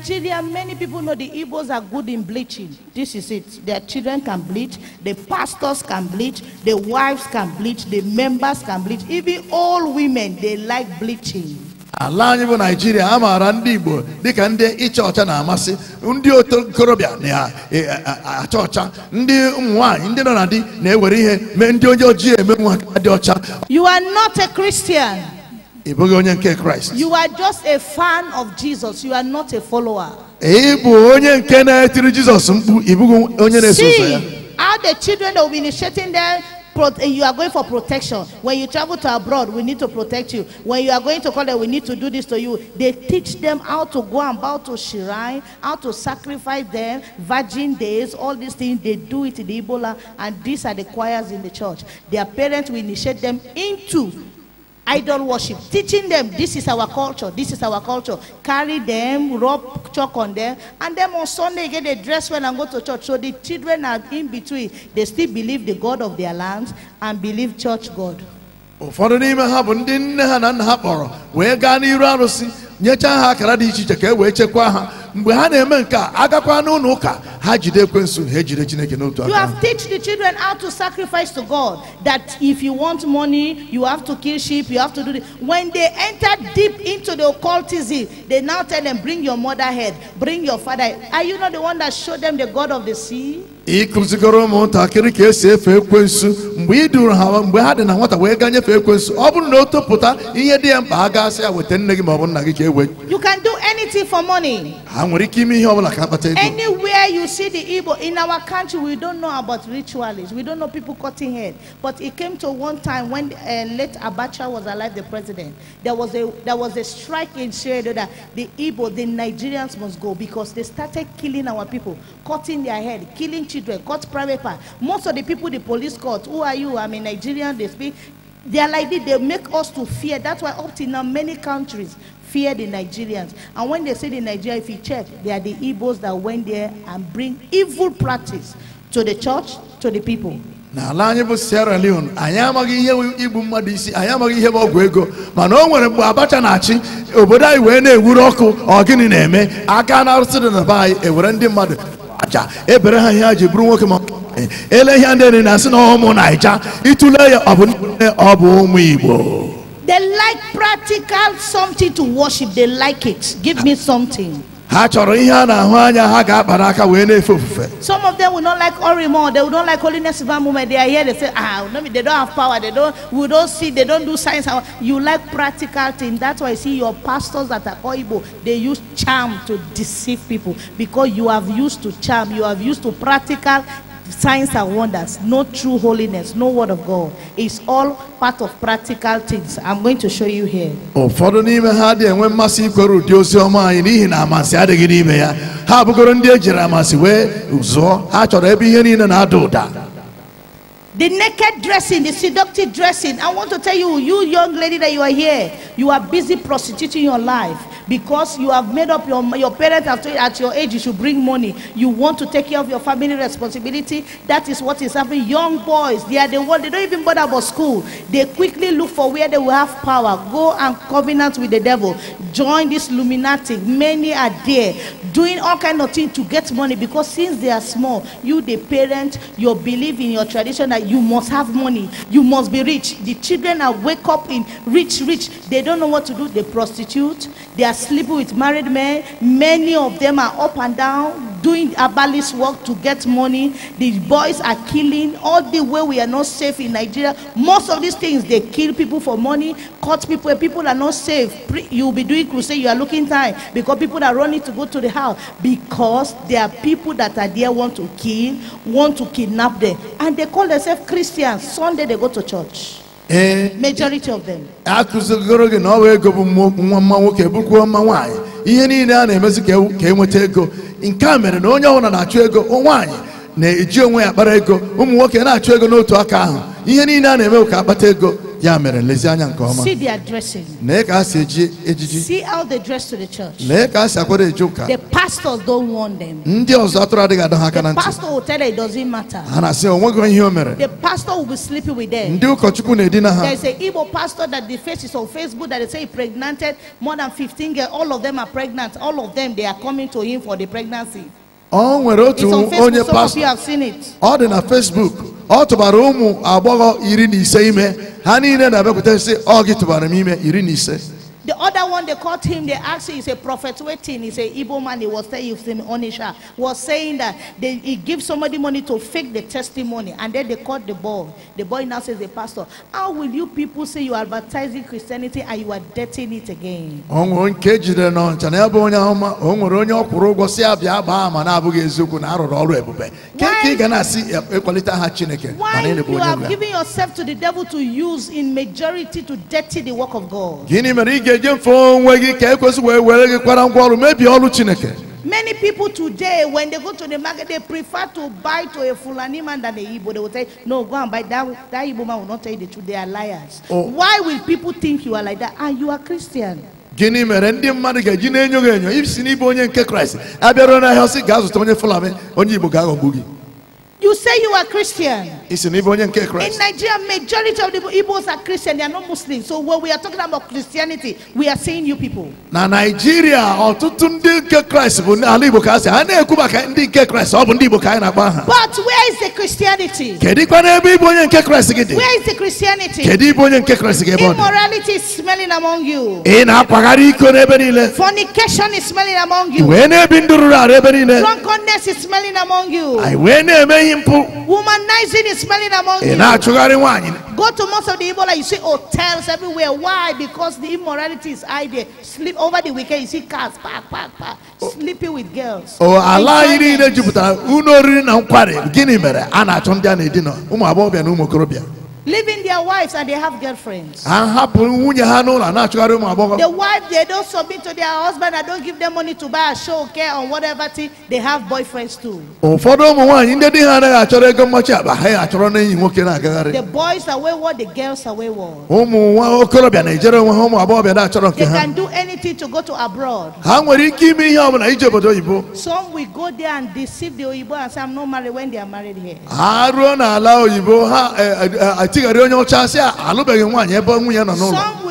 B: Nigeria, many people know the Igbos are good in bleaching. This is it. Their children can bleach, the pastors can bleach, the wives can bleach, the members can bleach. Even all women, they like bleaching.
C: ala anyị bụ naijiria a maara ndị igbo dịka ndị ịcha ọcha na-amasị ndị okorobịa na-acha ọcha ndị ụmụ nwanyị ndị nọ na di na-ewere ihe mee ndị onye ojii eme nwa dị ọcha
B: you are not a Christian
C: ịbụghị onye nke kraịst
B: you are just a fan of jesus you are not a follower
C: ịbụ onye nke na-etiri jizọs mkpu ịbụghị onye na-eso ụzọ ya
B: how the children will be initiating them eh, you are going for protection. When you travel to abroad, we need to protect you. When you are going to college, we need to do this to you. They teach them how to go about to shrine, how to sacrifice them, virgin days, all these things. They do it in Ebola, and these are the choirs in the church. Their parents will initiate them into idol worship, teaching them this is our culture, this is our culture. Carry them, rub chalk on them, and then on Sunday get a dress well and go to church. So the children are in between. They still believe the God of their lands and believe church God.
C: ụfọdụ n'ime ha bụ ndị nne ha na nna ha kpọrọ wee gaa n'iru arụsị nyechaa ha akara dị iche iche ka e wee chekwaa ha mgbe ha na-eme nke a agakwa n'ụlọ ụka ha jide ekwensu ha ejide chineke n'otu aka you have
B: teach the children how to sacrifice to God that if you want money you have to kill sheep you have to do this. when they enter deep into the occultism they now tell them bring your mother head bring your father head. are you not the one that showed them the God of the sea
C: ị ụmụntakịrị ka esi efe ekwensu mgbe ị duru ha mgbe ha dị na nwata wee gaa nyefee ekwensu ọ bụrụ na o topụta ihe dị ya mkpa ha gasị ya weta nne gị ma nna gị ka ewe
B: you can do anything for money
C: ha nwere ike ime ihe ọ bụla ka akpata ego
B: anywhere you see the Igbo in our country we don't know about rituals. we don't know people cutting head but it came to one time when uh, late Abacha was alive the president there was a there was a strike in Shedo that the Igbo the Nigerians must go because they started killing our people cutting their head killing children children, got private part. Most of the people the police court. who are you? I'm a Nigerian, they speak. They are like this, they make us to fear. That's why up till now, many countries fear the Nigerians. And when they say the Nigeria, if you check, they are the Igbos that went there and bring evil practice to the church, to the people.
C: n'ala anyị bụ sierra leone anyị amaghị ihe igbu mmadụ isi anyị amaghị ihe ọgwụ ego mana o nwere mgbe abacha na-achị obodo anyị wee na-ewuru ọkụ ọ gịnị na-eme aka na-arụsị dị na be anyị ewere ndị mmadụ n'aja ebere ha ji bụrụ nwoke ma eh, ele ihe ndị na-asị na ụmụ naija itule ya ọ bụ nne ọ bụ ụmụ igbo
B: They like practical something to worship. They like it. Give me something.
C: ha chọrọ ihe a na-ahụ anya ha ga-akpara aka wee na-efe ofufe
B: some of them will not like orimo they will not like holiness of they are here they say ah no they don't have power they don't we don't see they don't do science you like practical thing that's why you see your pastors that are oibo they use charm to deceive people because you have used to charm you have used to practical signs and wonders, no true holiness, no word of God. It's all part of practical things. I'm going to show you here.
C: Ụfọdụ n'ime ha dị enwe mmasị ikwere ụdị ozi ọma anyị n'ihi na amasị adịghị n'ime ya. Ha abụgoro ndị e jiri amasị wee zụọ ha chọrọ ebe ihe niile na-ada ụda.
B: The naked dressing, the seductive dressing. I want to tell you, you young lady that you are here, you are busy prostituting your life because you have made up your your parents have told you at your age you should bring money. You want to take care of your family responsibility. That is what is happening. Young boys, they are the one they don't even bother about school. They quickly look for where they will have power. Go and covenant with the devil. Join this luminati. Many are there doing all kind of things to get money because since they are small, you the parent, your belief in your tradition that you must have money, you must be rich. The children are wake up in rich, rich. They don't know what to do. They prostitute. They are sleeping with married men. Many of them are up and down doing herbalist work to get money. The boys are killing. All the way we are not safe in Nigeria. Most of these things, they kill people for money, cut people, people are not safe. You be doing crusade, you are looking time because people are running to go to the house because there are people that are there want to kill, want to kidnap them. And they call themselves Christians. Sunday they go to church.
C: ee eh. of gị na ọ ego bụ nwa mma nwoke bụkwa mma nwaanyị ihe niile a na-emezi ka enweta e ego nke a mere na onye ọbụla na-achụ ego nwaanyị na-eji onwe ya kpara ego ụmụ nwoke na-achụ ego n'otu aka ahụ ihe niile a na-eme ka akpata ego ya mere lezianya nke ọma see
B: their dressing
C: lee ka ha si eji ejiji see
B: how they dress to the church
C: lee ka ha si akwado eji ụka the
B: pastors don't warn them
C: ndị ọzọ atụrụ adịghị adọ ha aka na ntị pastor
B: will tell it doesn't matter ha
C: na-asị onweghị ihe o mere the
B: pastor will be sleeping with them
C: ndị ụkọchukwu na-edina ha there is
B: a Igbo pastor that the face on Facebook that they say he more than 15 all of them are pregnant all of them they are coming to him for the pregnancy
C: ọ nwere otu onye pastọ ọ dị na Facebook ọ tụbara ụmụ agbọghọ iri na ise ime ha niile na-abịakwute sị ọ gị tụbara m ime iri na ise
B: The other one, they caught him, they asked him, he's a prophet waiting. He's a "Evil man, he was saying, he Onisha, was saying that they, he gives somebody money to fake the testimony. And then they caught the boy. The boy now says, the pastor, how will you people say you are advertising Christianity and you are dirtying it again? Why you are giving yourself to the devil to use in majority to dirty the work of God?
C: eje mfe onwe gị ka ekwesị wee were gị kwara ngwa ọrụ mebie ọrụ chineke
B: Many people today, when they go to the market, they prefer to buy to a Fulani man than a Igbo. They will say, No, go and buy that. That Igbo man will not tell you the truth. They are liars. Oh. Why will people think you are like that? And you are Christian.
C: gịnị mere ndị mmadụ ga-eji na-enyo gị enyo isi n'ịbụ onye nke kraịst abịaruo n'ahịa ọsị gaa zụta onye fulani onye igbo ga-aghọgbu gị
B: You say you are Christian.
C: In Nigeria,
B: majority of the Igbos are Christian. They are not Muslim. So when we are talking about Christianity, we are saying you people.
C: Na Nigeria, ọtụtụ ndị nke Christ bụ ala Igbo ka asị. Ha na ndị nke Christ. Ọ bụ ndị Igbo ka na na-akpọ
B: But where is the Christianity?
C: Kedikwa n'ebe Igbo onye nke Christ gị Where
B: is the Christianity? Kedi Igbo
C: onye nke Christ gị
B: Immorality is smelling among you. i pagari na-akpagharị
C: iko n'ebe niile.
B: Fornication is smelling among you. Ị ne na-ebi ndụ
C: rụrụ
B: Drunkenness is smelling among you. Anyị wee na-eme womanizing is smelling among eh, you go to most of the Ebola you see hotels everywhere why because the immorality is high there sleep over the weekend you see cars park park park oh. sleeping with girls Oh ala anyị
C: niile jupụtara Uno oriri na nkwari gịnị mere a na-achọ ndị a na-edina ụmụ agbọghọbịa na acho ndi a na na umu
B: leaving their wives and they have girlfriends. The wife they don't submit to their husband and don't give them money to buy a show care on whatever thing they have boyfriends too. The boys are wayward, the girls are oh,
C: wayward. They can
B: do anything to go to abroad. Some will go there and deceive the Oyibo and say I'm not married when they are married here.
C: Eh, eh, eh, some will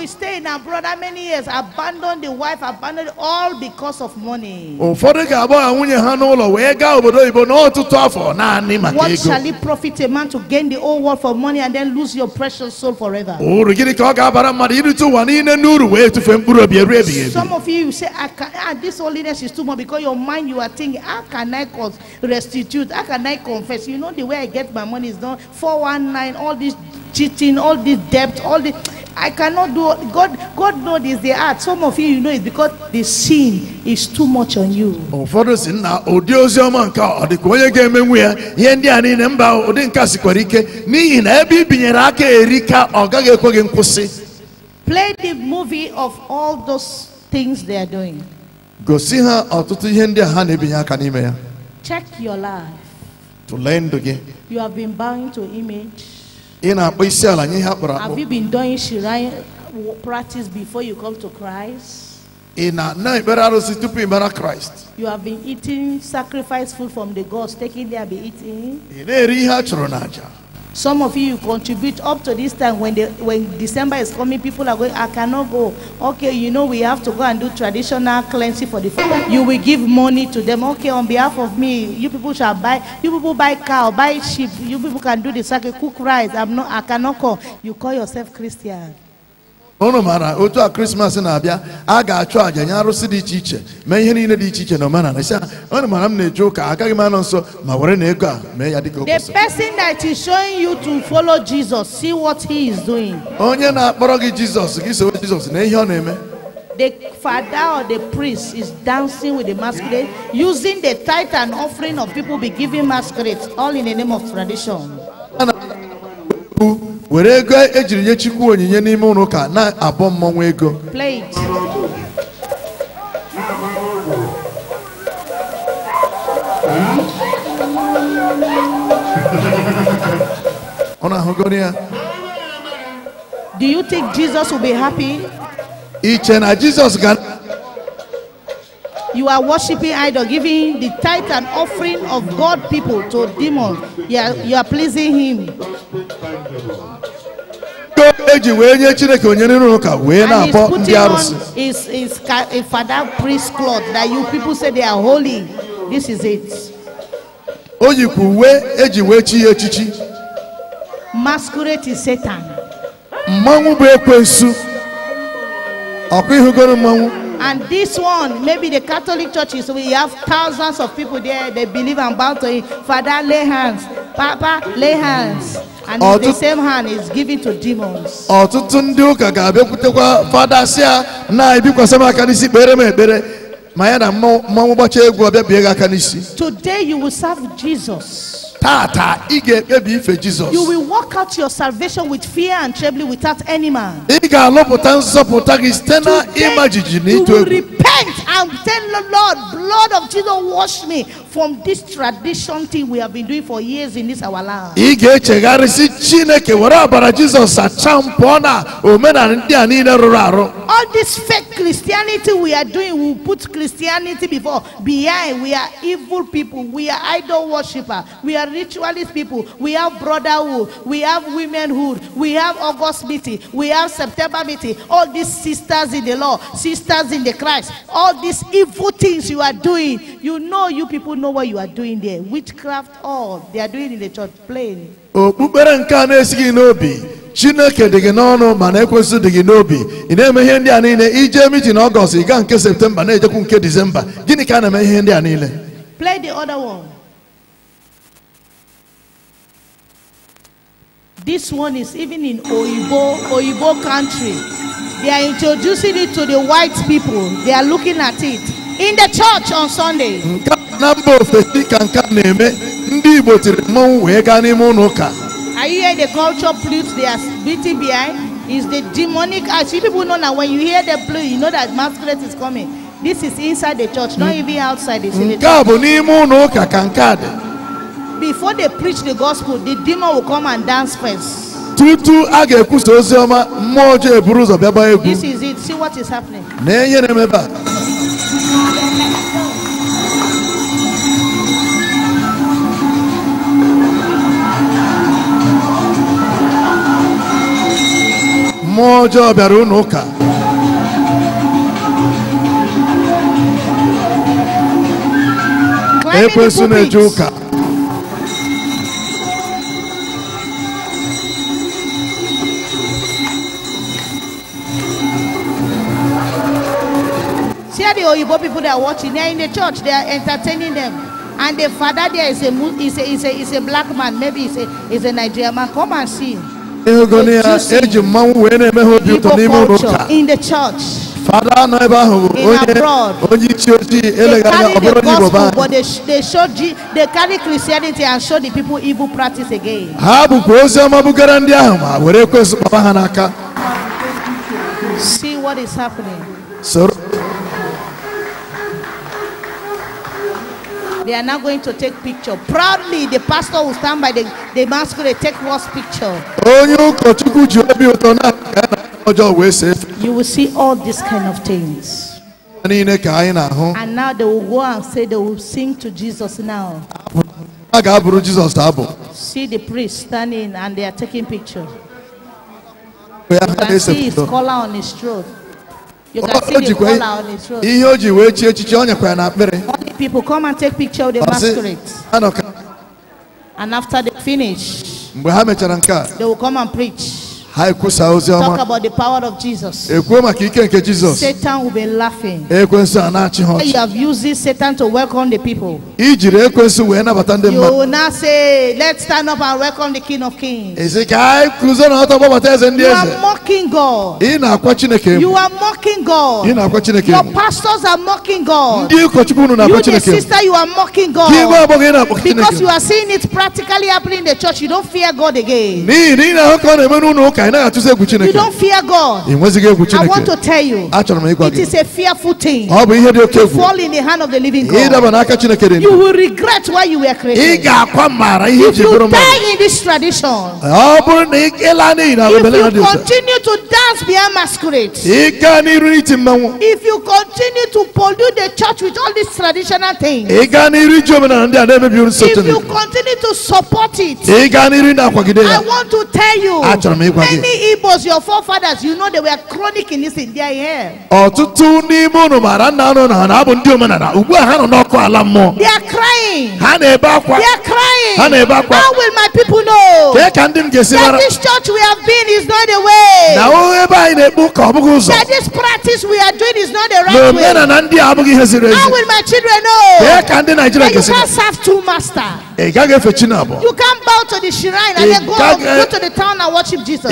B: stay in abroad many years abandon the wife abandon all because of money what shall it profit a man to gain the whole world for money and then lose your precious soul forever some of you say I can, ah, this holiness is too much because your mind you are thinking how can I restitute how can I confess you know the way I get my money is done 419 all these cheating, all this debt, all this. I cannot do God God know this they are some of you you know it because the sin is too much on you. Ụfọdụ
C: si na ụdị ozi nke ọ dịka onye ga-emenwu ya ihe ndị a niile mba ụdị nka sikwara ike n'ihi na ebe i binyere aka erika ọ gaghị ekwe gị nkwụsị.
B: Play the movie of all those things they are doing.
C: Gosi ha ọtụtụ ihe ndị a ha na-ebinye aka n'ime ya.
B: Check your life.
C: Tụlee ndụ gị.
B: You have been bound to image.
C: ị na-akpọ isi ala nye ihe akpọrọ akpọ Have you
B: been doing Shirai practice before you come to Christ?
C: ị na-ana ekpere arụsị tupu ị mara Christ
B: You have been eating sacrifice food from the gods, taking there be eating.
C: ị na-eri a chụrụ
B: Some of you contribute up to this time when, the, when December is coming, people are going, I cannot go. Okay, you know, we have to go and do traditional cleansing for the family. You will give money to them. Okay, on behalf of me, you people shall buy, you people buy cow, buy sheep, you people can do the sacrifice, cook rice. I'm not, I cannot call. You call yourself Christian.
C: unu maara otu a krismas na-abịa a achu àjà nye arụsị dị iche iche ihe niile dị iche iche na omenala sị unu m na-eje ụka agaghị m nso ma were na ego a mee ya dịka
B: the person that is showing you to follow Jesus see what he is doing
C: onye na-akpọrọ gị Jesus gị sowe Jizọs na ihe ọ na-eme
B: the father or the priest is dancing with the masquerade using the tithe and offering of people be giving masquerades all in the name of tradition
C: were ego ejiri nye chukwu onyinye n'ime ụlọ ụka na-abọ mmọnwụ ego ọ na-ahụgoro ya
B: do you think Jesus will be happy? iche na Jesus ga You are worshiping idol, giving the tithe and offering of God people to demon. You are, you are pleasing him.
C: eji wee nye chineke onye n'ụlọ ụka wee na-akpọ ndị arụsị.
B: is is a father priest cloth that you people say they are holy this is it.
C: o yikwa uwe eji wee chi ya echichi.
B: masquerade is satan.
C: mmanwụ bụ ekwensu ọkụ ihugoro mmanwụ.
B: And this one, maybe the Catholic churches, we have thousands of people there. They believe and bow to him. Father, lay hands. Papa, lay hands. And Ọtụtụ the same hand is given to demons.
C: Ọtụtụ ndị ụka ga-abịakwutekwa fada si na-ebikwasị aka n'isi kpere m ekpere mayana mma mmụbọcha egwu ọbịa bie gị aka n'isi
B: today you will serve jesus
C: taata ị ga-ekpebi ife jizọs you
B: will work out your salvation with fear and trembling without any man
C: ị ga-alụpụta nzọpụta gị site na ịma jijiji na ịtụ egwu you will
B: repent and tell the lord blood of jesus wash me from this tradition thing we have been doing for years in this our land.
C: ị ga-echegharị chineke were ọbara jizọs sachaa mpụọ na omenala ndị a niile rụrụ arụ.
B: all this fake christianity we are doing we put christianity before behind we are evil people we are idol worshiper we are ritualist people we have brotherhood we have womenhood we have august meeting we have september meeting all these sisters in the law sisters in the christ all these evil things you are doing you know you people know what you are doing there. Witchcraft, all they are doing in the church, plain.
C: okpukpere nke a na-esighị n'obi chineke dị gị n'ọnụ ma na-ekwesị dị gị n'obi ị na-eme ihe ndị a niile ije mitin ọgọst ị gaa nke septemba na-ejekwu nke gịnị ka a na-eme ihe ndị a niile
B: play the other one this one is even in oyibo oyibo country they are introducing it to the white people they are looking at it in the church on sunday nke
C: na mba ofesi ka nke na-eme ndị Igbo tiri mmọnwụ wee gaa n'ime ụlọ ụka
B: Are you hear the culture flutes they are beating behind? Is the demonic act. You people know now when you hear the flute, you know that masquerade is coming. This is inside the church, not even outside. It's in the
C: church.
B: Before they preach the gospel, the demon will come and dance first.
C: Tutu a ga-ekwusa ozi ọma mmụọ ọjọọ eburu ụzọ bịaba egwu. This
B: is it. See what is happening.
C: Na ihe na-emebe moja ọbịara unu ụka
B: ekwensu na-eje ụka the Oyibo people that are watching, they are in the church, they are entertaining them. And the father there is a, is a, is a, is a black man, maybe it's a, is a Nigerian man. Come and see
C: eji mmanwụ wee na-eme ha obi ụtọ n'ime ụlọ ụka fada anọ ebe ahụ bụ onye onye isi ojii eleghara anya ọ bụrụ
B: onye igbo be
C: ha bụkwa ozi ọma bugara ndị ahụ ma were ekwesị kpọba ha n'aka soro
B: They are now going to take picture. Proudly, the pastor will stand by the, the masquerade, take first picture. You will see all these kind of things. And now they will go and say they will sing to Jesus now. See the priest standing and they are taking picture.
C: You can see his collar
B: on his throat. ihe
C: o ji wee chi ọ nyekwara
B: Only people come and take picture of the Ọ masquerade. And after they finish,
C: mgbe ha mechara nke a
B: they will come and preach.
C: Talk about
B: the power of Jesus. Satan will be laughing.
C: You
B: have used this Satan to welcome the people.
C: You will
B: now say, Let's stand up and welcome the King of Kings.
C: You are
B: mocking God.
C: You
B: are mocking God. Your pastors are mocking God. You, the sister, you are mocking God. Because you are seeing it practically happening in the church, you don't fear God again.
C: ka ị naghị atụsi egwu chineke. you don't
B: fear God. ị nwezighị egwu chineke. I want to tell you.
C: achọrọ m ịgwa gị. it is a
B: fearful thing. ọ bụ ihe dị oke egwu. fall in the hand of the living God. ịdaba n'aka
C: chineke dị ndụ. you will
B: regret why you were created. ị ga-akwa mara ihe ji bụrụ mmadụ. if you die in this tradition.
C: ọ bụrụ na ị laa n'ihi na obele ha dị ụzọ. if you
B: continue to dance behind masquerade. ị
C: gaa n'iru n'iti mmanwụ.
B: if you continue to pollute the church with all these traditional things. ị
C: gaa n'iru iji omenala ndị a na-emebi nsọ chineke. if you
B: continue to support it. ị gaa n'iru na-akwagide ya. I want to tell you. achọrọ m ịgwa again. Many Igbos, your forefathers, you know they were chronic in this in their hair.
C: Ọtụtụ n'ime unu maara nna unu na ha bụ ndị omenala ugbu a ha nọ n'ọkụ ala mmụọ.
B: They are crying.
C: Ha na-ebe akwa. They are crying. Ha na-ebe akwa. How will
B: my people know? Kee ka ndị m ga-esi mara. That this church we have been is not the way. Na ebe
C: anyị na-ekpu ka ọ bụghị ụzọ. That
B: this practice we are doing is not the right way. Na omenala ndị a abụghị ihe ziri ezi. How will my children know? Kee ka ndị Naịjirịa ga-esi mara. That you can't serve two masters.
C: Ị gaghị efe Chinabọ.
B: You can't bow to the shrine and then go, go to the town and worship Jesus.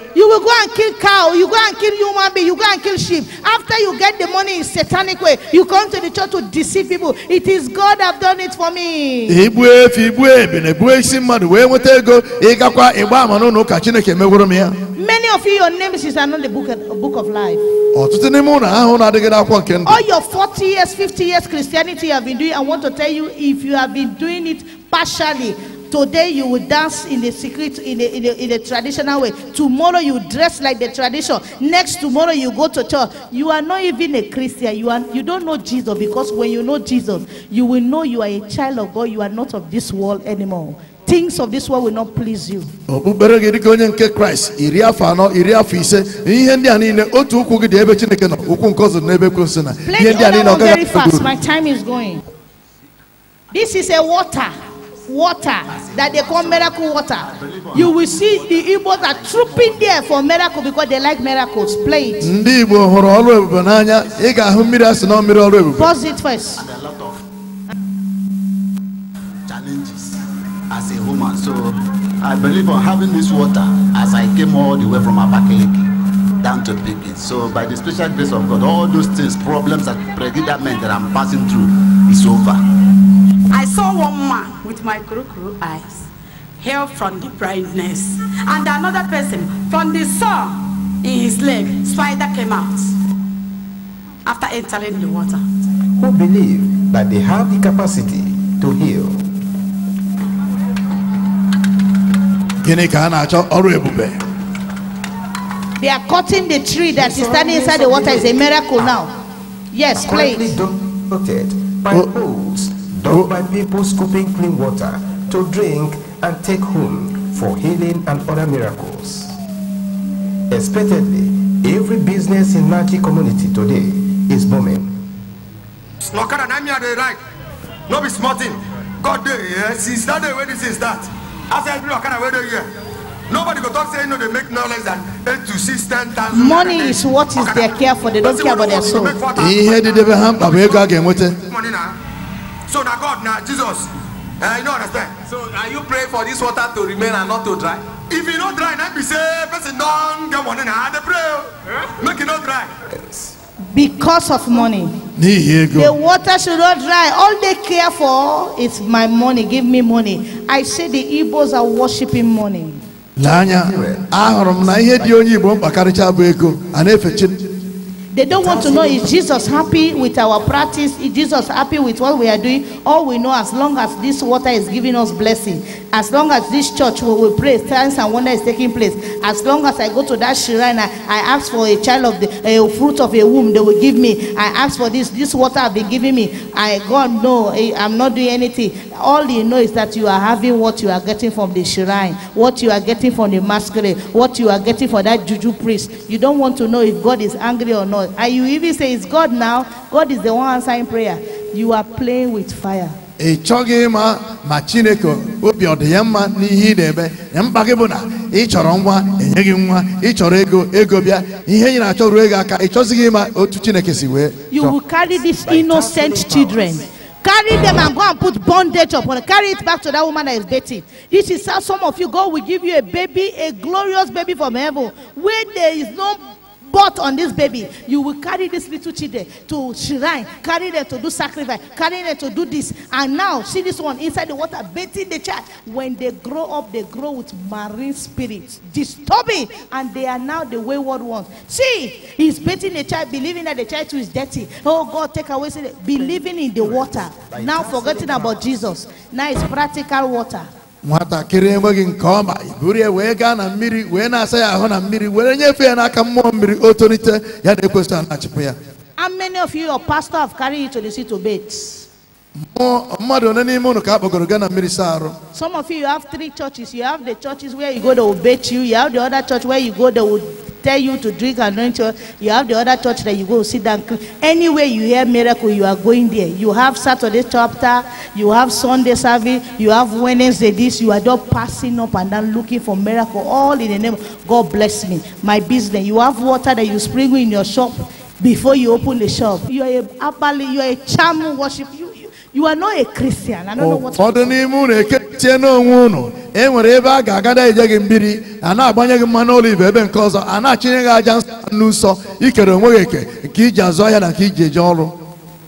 B: You will go and kill cow, you go and kill human being, you go and kill sheep. After you get the money in satanic way, you come to the church to deceive people. It is God have done it for me. many of you your names is not the book, book of life all your 40 years 50 years christianity you have been doing i want to tell you if you have been doing it partially Today you will dance in the secret, in a, in a, in a traditional way. Tomorrow you dress like the tradition. Next tomorrow you go to church. You are not even a Christian. You, are, you don't know Jesus because when you know Jesus, you will know you are a child of God. You are not of this world anymore. Things of this world will not please you.
C: Okpukpere oh, gị dịka onye nke Kraịst iri afọ anọ iri afọ ise ihe ndị a niile otu ụkwụ gị dị ebe Chineke nọ ụkwụ nke ọzọ n'ebe Ekwensu na ihe ndị a niile ọ gaghị. very fast.
B: My time is going. This is a water water that they call miracle water you will see the Igbos are trooping there for miracle because they like miracles play it.
C: ndị Igbo hụrụ ọrụ ebube n'anya ị ga-ahụ mmiri asị na mmiri ọrụ ebube. pause
B: it first. and a lot of
C: challenges as a woman so I believe on having this water as I came all the way from Abakaliki down to Pikin so by the special grace of God all those things problems and predicament that I'm passing through is over.
B: I saw one man with my kuru eyes, heal from the brightness, and another person from the sun in his leg, spider came out after entering the water.
D: Who believe that they have the capacity to heal. They
B: are cutting the tree that is standing inside the water is a miracle now. Yes, please.
C: by oh. Though
A: buy people scooping clean water to drink and take home for healing and other miracles. Expectedly, every business in Naki community today is booming. Snokara na me dey like. No be small
C: thing. God dey here since that day when this is that. As every Okada wey dey here. Nobody go talk say no they
B: make knowledge that 8 to 6 10,000. Money is what is their care for. They don't care about their soul.
C: Ihe dị the devil mkpa bụ ego a ga so now God, now Jesus, uh, you don't understand. So are you praying for this water to remain and not to dry? If
B: you not dry, now be say person don't get money now. They prayer, eh? make it not dry. Because of money.
C: The
B: water should not dry. All they care for is my money. Give me money. I say the Igbos are worshiping money.
C: na ihe dị onye Igbo bụ ego, efe
B: they don't want to know is Jesus happy with our practice? Is Jesus happy with what we are doing? All we know, as long as this water is giving us blessing, as long as this church where we pray, signs and wonder is taking place, as long as I go to that shrine, I, I ask for a child of the a fruit of a womb, they will give me. I ask for this, this water have been giving me. I God no, I, I'm not doing anything. All you know is that you are having what you are getting from the shrine, what you are getting from the masquerade, what you are getting for that juju priest. You don't want to know if God is angry or not. God. And you even say it's God now, God is the one answering prayer. You are playing with fire.
C: ị chọghị ịma ma chineke obi ọ dị ya mma n'ihe ị na-eme na mkpa gị bụ na ị chọrọ nwa enye gị nwa ị chọrọ ego ego bịa ihe ị achọ ruo ego aka ị chọzighị ịma otu chineke si wee
B: you will carry these innocent children carry them and go and put bondage upon them. Carry it back to that woman that is dating. This is how some of you, God will give you a baby, a glorious baby from heaven, where there is no Bought on this baby, you will carry this little children to shrine, carry them to do sacrifice, carry them to do this. And now, see this one inside the water, bathing the child. When they grow up, they grow with marine spirits, disturbing, and they are now the wayward ones. See, he's bathing the child, believing that the child too is dirty. Oh God, take away, believing in the water, now forgetting about Jesus. Now it's practical water
C: nwatakịrị enweghị nke ọma iburu wee gaa na mmiri wee na-asa ya ahụ na mmiri were nyefee ya n'aka mmụọ mmiri o tolite ya na-ekwesị a ya
B: how many of you your pastor have carried you to the sea to beds? some of you, you have three churches you have the churches where you go they will bathe you you have the other church where you go they will tell you to drink anoint You have the other church that you go sit down. Anywhere you hear miracle, you are going there. You have Saturday chapter, you have Sunday service, you have Wednesday this. You are just passing up and then looking for miracle. All in the name of God bless me. My business. You have water that you sprinkle in your shop before you open the shop. You are a you are a charm worship. You you are not a Christian. I don't know what.
C: Ụfọdụ n'ime unu ekechie n'onwe unu e nwere ebe a ga-agada eje gị mbiri a na-agbanye gị mmanụ olive ebe nke ọzọ a na-achịnye gị aja n'ụsọ ikere onwe gị eke nke iji azụ ahịa na nke iji eje ọrụ.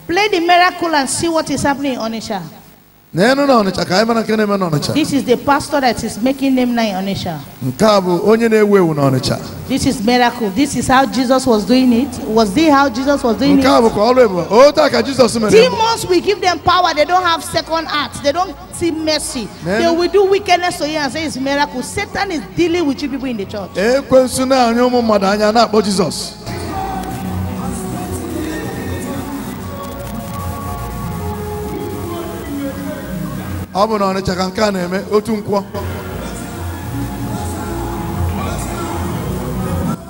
B: Play the miracle and see what is happening in Onitsha. This is the pastor that is making them nine onisha. This is miracle. This is how Jesus was doing it. Was this how Jesus was doing
C: it?
B: Demons will give them power. They don't have second acts. They don't see mercy. They will do wickedness to you and say it's miracle. Satan is dealing with you people in the church.
C: na ọnịcha nke a na-eme otu nkwọ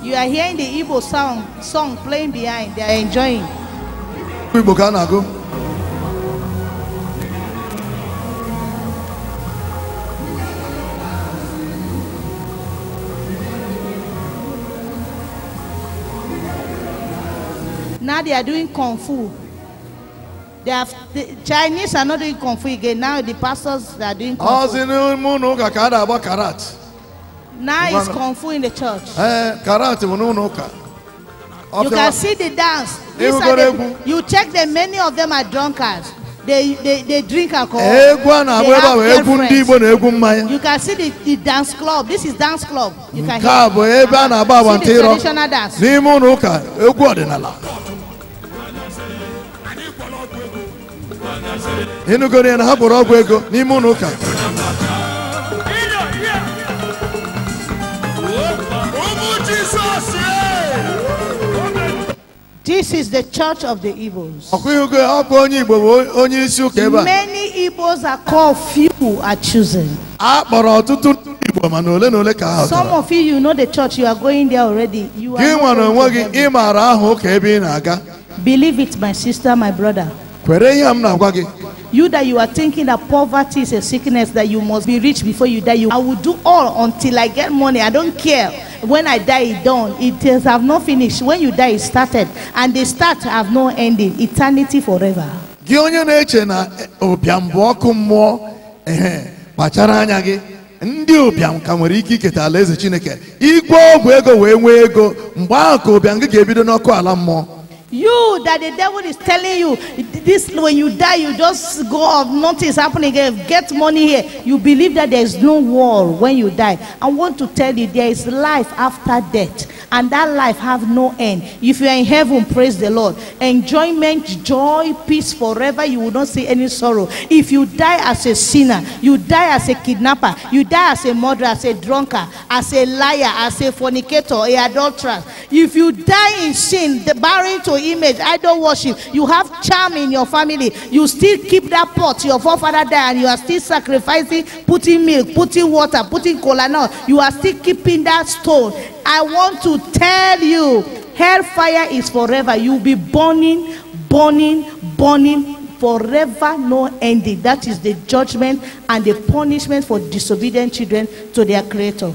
B: You are hearing the Igbo song, song playing behind. They are enjoying.
C: Igbo ka na-agụ.
B: Now they are doing kung fu. They have, the Chinese are not doing Kung Fu again. Now the pastors are doing Kung Fu. Now it's Kung Fu in the church. You can see the dance. These are the, you check them. many of them are drunkards. They, they, they drink alcohol. They have girlfriends. You can see the, the dance club. This is dance club. You can hear. See the traditional dance.
C: ịnụgoro ya na ha bụrụ ọgwụ ego n'ime ụlọ ụka
B: This is the church of the Igbos. Ọkụihugo ọ bụ onye Igbo bụ onyeisi ụka ebe a. Many Igbo are called people are chosen. A kpọrọ ọtụtụ
C: Igbo mana ole na ole ka ha Some of
B: you know the church you are going there already. You are Gị nwere onwe gị ị maara aha ụka ebe ị na-aga. Believe it my sister my brother. kwere ihe m na-agwa gị You that you are thinking that poverty is a sickness that you must be rich before you die. You, I will do all until I get money. I don't care. When I die, it done. It is have not finished. When you die, it started, and the start have no ending. Eternity forever.
C: Gị onye na-eche na ụbịam eh, bụ ọkụ mmụọ ehe kpachara anya gị ndị ụbịam ka nwere ike iketa alaeze Chineke igwe ọgwụ ego wee nwee ego mgbe ahụ ka ụbịam gị ga-ebido n'ọkụ ala mmụọ
B: You that the devil is telling you this when you die, you just go off, nothing is happening again. Get money here. You believe that there is no war when you die. I want to tell you there is life after death, and that life have no end. If you are in heaven, praise the Lord. Enjoyment, joy, peace forever. You will not see any sorrow. If you die as a sinner, you die as a kidnapper, you die as a murderer, as a drunkard, as a liar, as a fornicator, a adulterer. If you die in sin, the barren to image, idol worship. You have charm in your family. You still keep that pot your forefather died and you are still sacrificing, putting milk, putting water, putting cola No, You are still keeping that stone. I want to tell you, hellfire is forever. You'll be burning, burning, burning forever no ending. That is the judgment and the punishment for disobedient children to their creator.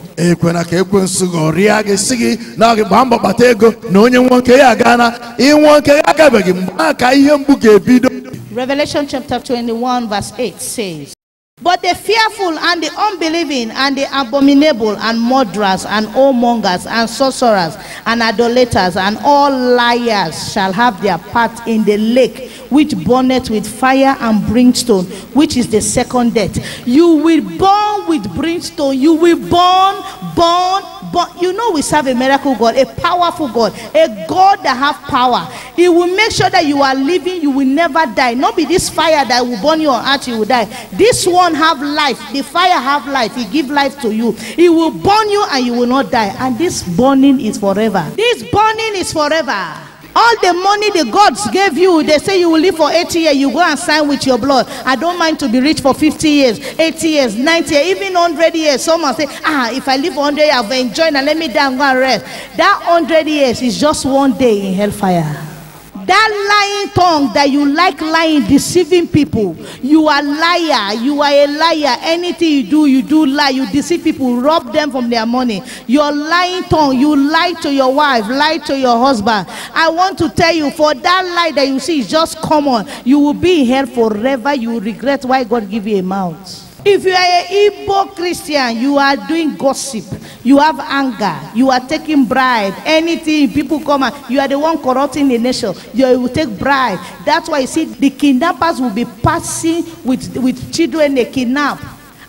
B: Revelation chapter 21 verse 8 says. But the fearful and the unbelieving and the abominable and murderers and whoremongers and sorcerers and idolaters and all liars shall have their part in the lake which burneth with fire and brimstone, which is the second death. You will burn with brimstone. You will burn, burn, But you know we serve a miracle God, a powerful God, a God that have power. He will make sure that you are living, you will never die. Not be this fire that will burn your heart. you will die. This one have life. The fire have life. He give life to you. He will burn you and you will not die. And this burning is forever. This burning is forever. All the money the gods gave you, they say you will live for 80 years, you go and sign with your blood. I don't mind to be rich for 50 years, 80 years, 90 years, even 100 years. Someone say, ah, if I live 100 years, I've enjoyed and let me die and go and rest. That 100 years is just one day in hellfire. That lying tongue that you like lying, deceiving people. You are liar. You are a liar. Anything you do, you do lie. You deceive people, rob them from their money. Your lying tongue, you lie to your wife, lie to your husband. I want to tell you, for that lie that you see is just common. You will be in hell forever. You regret why God give you a mouth. If you are a Igbo Christian, you are doing gossip, you have anger, you are taking bribe, anything people come and you are the one corrupting the nation, you will take bribe. That's why you see the kidnappers will be passing with, with children they kidnap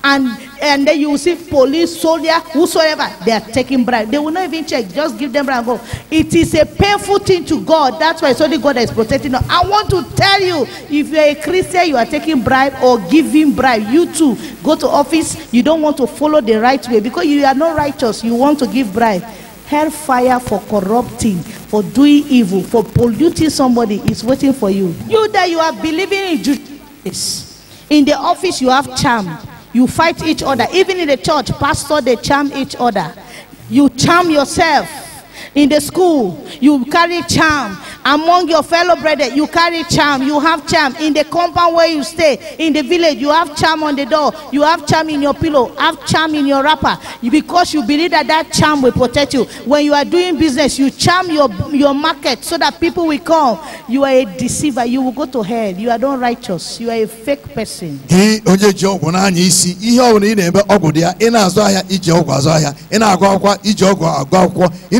B: and and then you see police soldier whosoever they are taking bribe they will not even check just give them bribe and go it is a painful thing to god that's why it's only god that is protecting us i want to tell you if you are a christian you are taking bribe or giving bribe you too go to office you don't want to follow the right way because you are not righteous you want to give bribe hellfire for corrupting for doing evil for polluting somebody is waiting for you you that you are believing in justice in the office you have charm. You fight each other. Even in the church, pastor, they charm each other. You charm yourself. In the school, you carry charm. Among your fellow brethren, you carry charm, you have charm. In the compound where you stay, in the village, you have charm on the door, you have charm in your pillow, have charm in your wrapper. Because you believe that that charm will protect you. When you are doing business, you charm your, your market so that people will come. You are a deceiver. You will go to hell. You are not righteous. You are a fake person.
C: ihe ọgwụ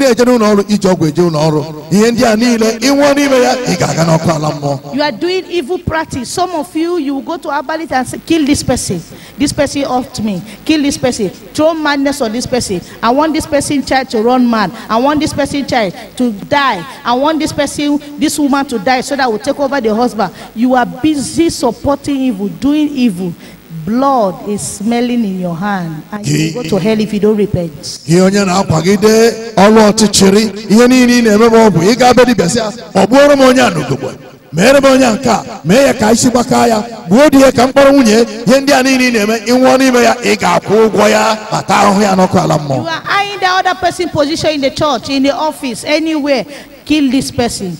C: na eje n'ụlọ ọrụ iji ọgwụ eje ụlọ ihe ndị a niile You
B: are doing evil practice. Some of you, you go to Abalit and say, kill this person. This person off me. Kill this person. Throw madness on this person. I want this person child to run mad. I want this person child to die. I want this person, this woman to die so that will take over the husband. You are busy supporting evil, doing evil blood is smelling in your hand and you go to hell if you don't repent.
C: gị onye na-akwagide ọlụ ọchịchịrị ihe niile ị na-eme bụ ị ga-abịa dibịa ọ bụrụ m onye a n'ogogbo meere m onye nke a mee ya ka isi gbakọọ ya gbuo di ya ka mkpọrọ nwunye ihe ndị a niile ị na-eme ịnwụọ n'ime ya ị ga-akwụ ụgwọ ya ata ahụhụ ya n'ọkụ ala mmụọ. you
B: are eyeing the other person position in the church in the office anywhere kill this person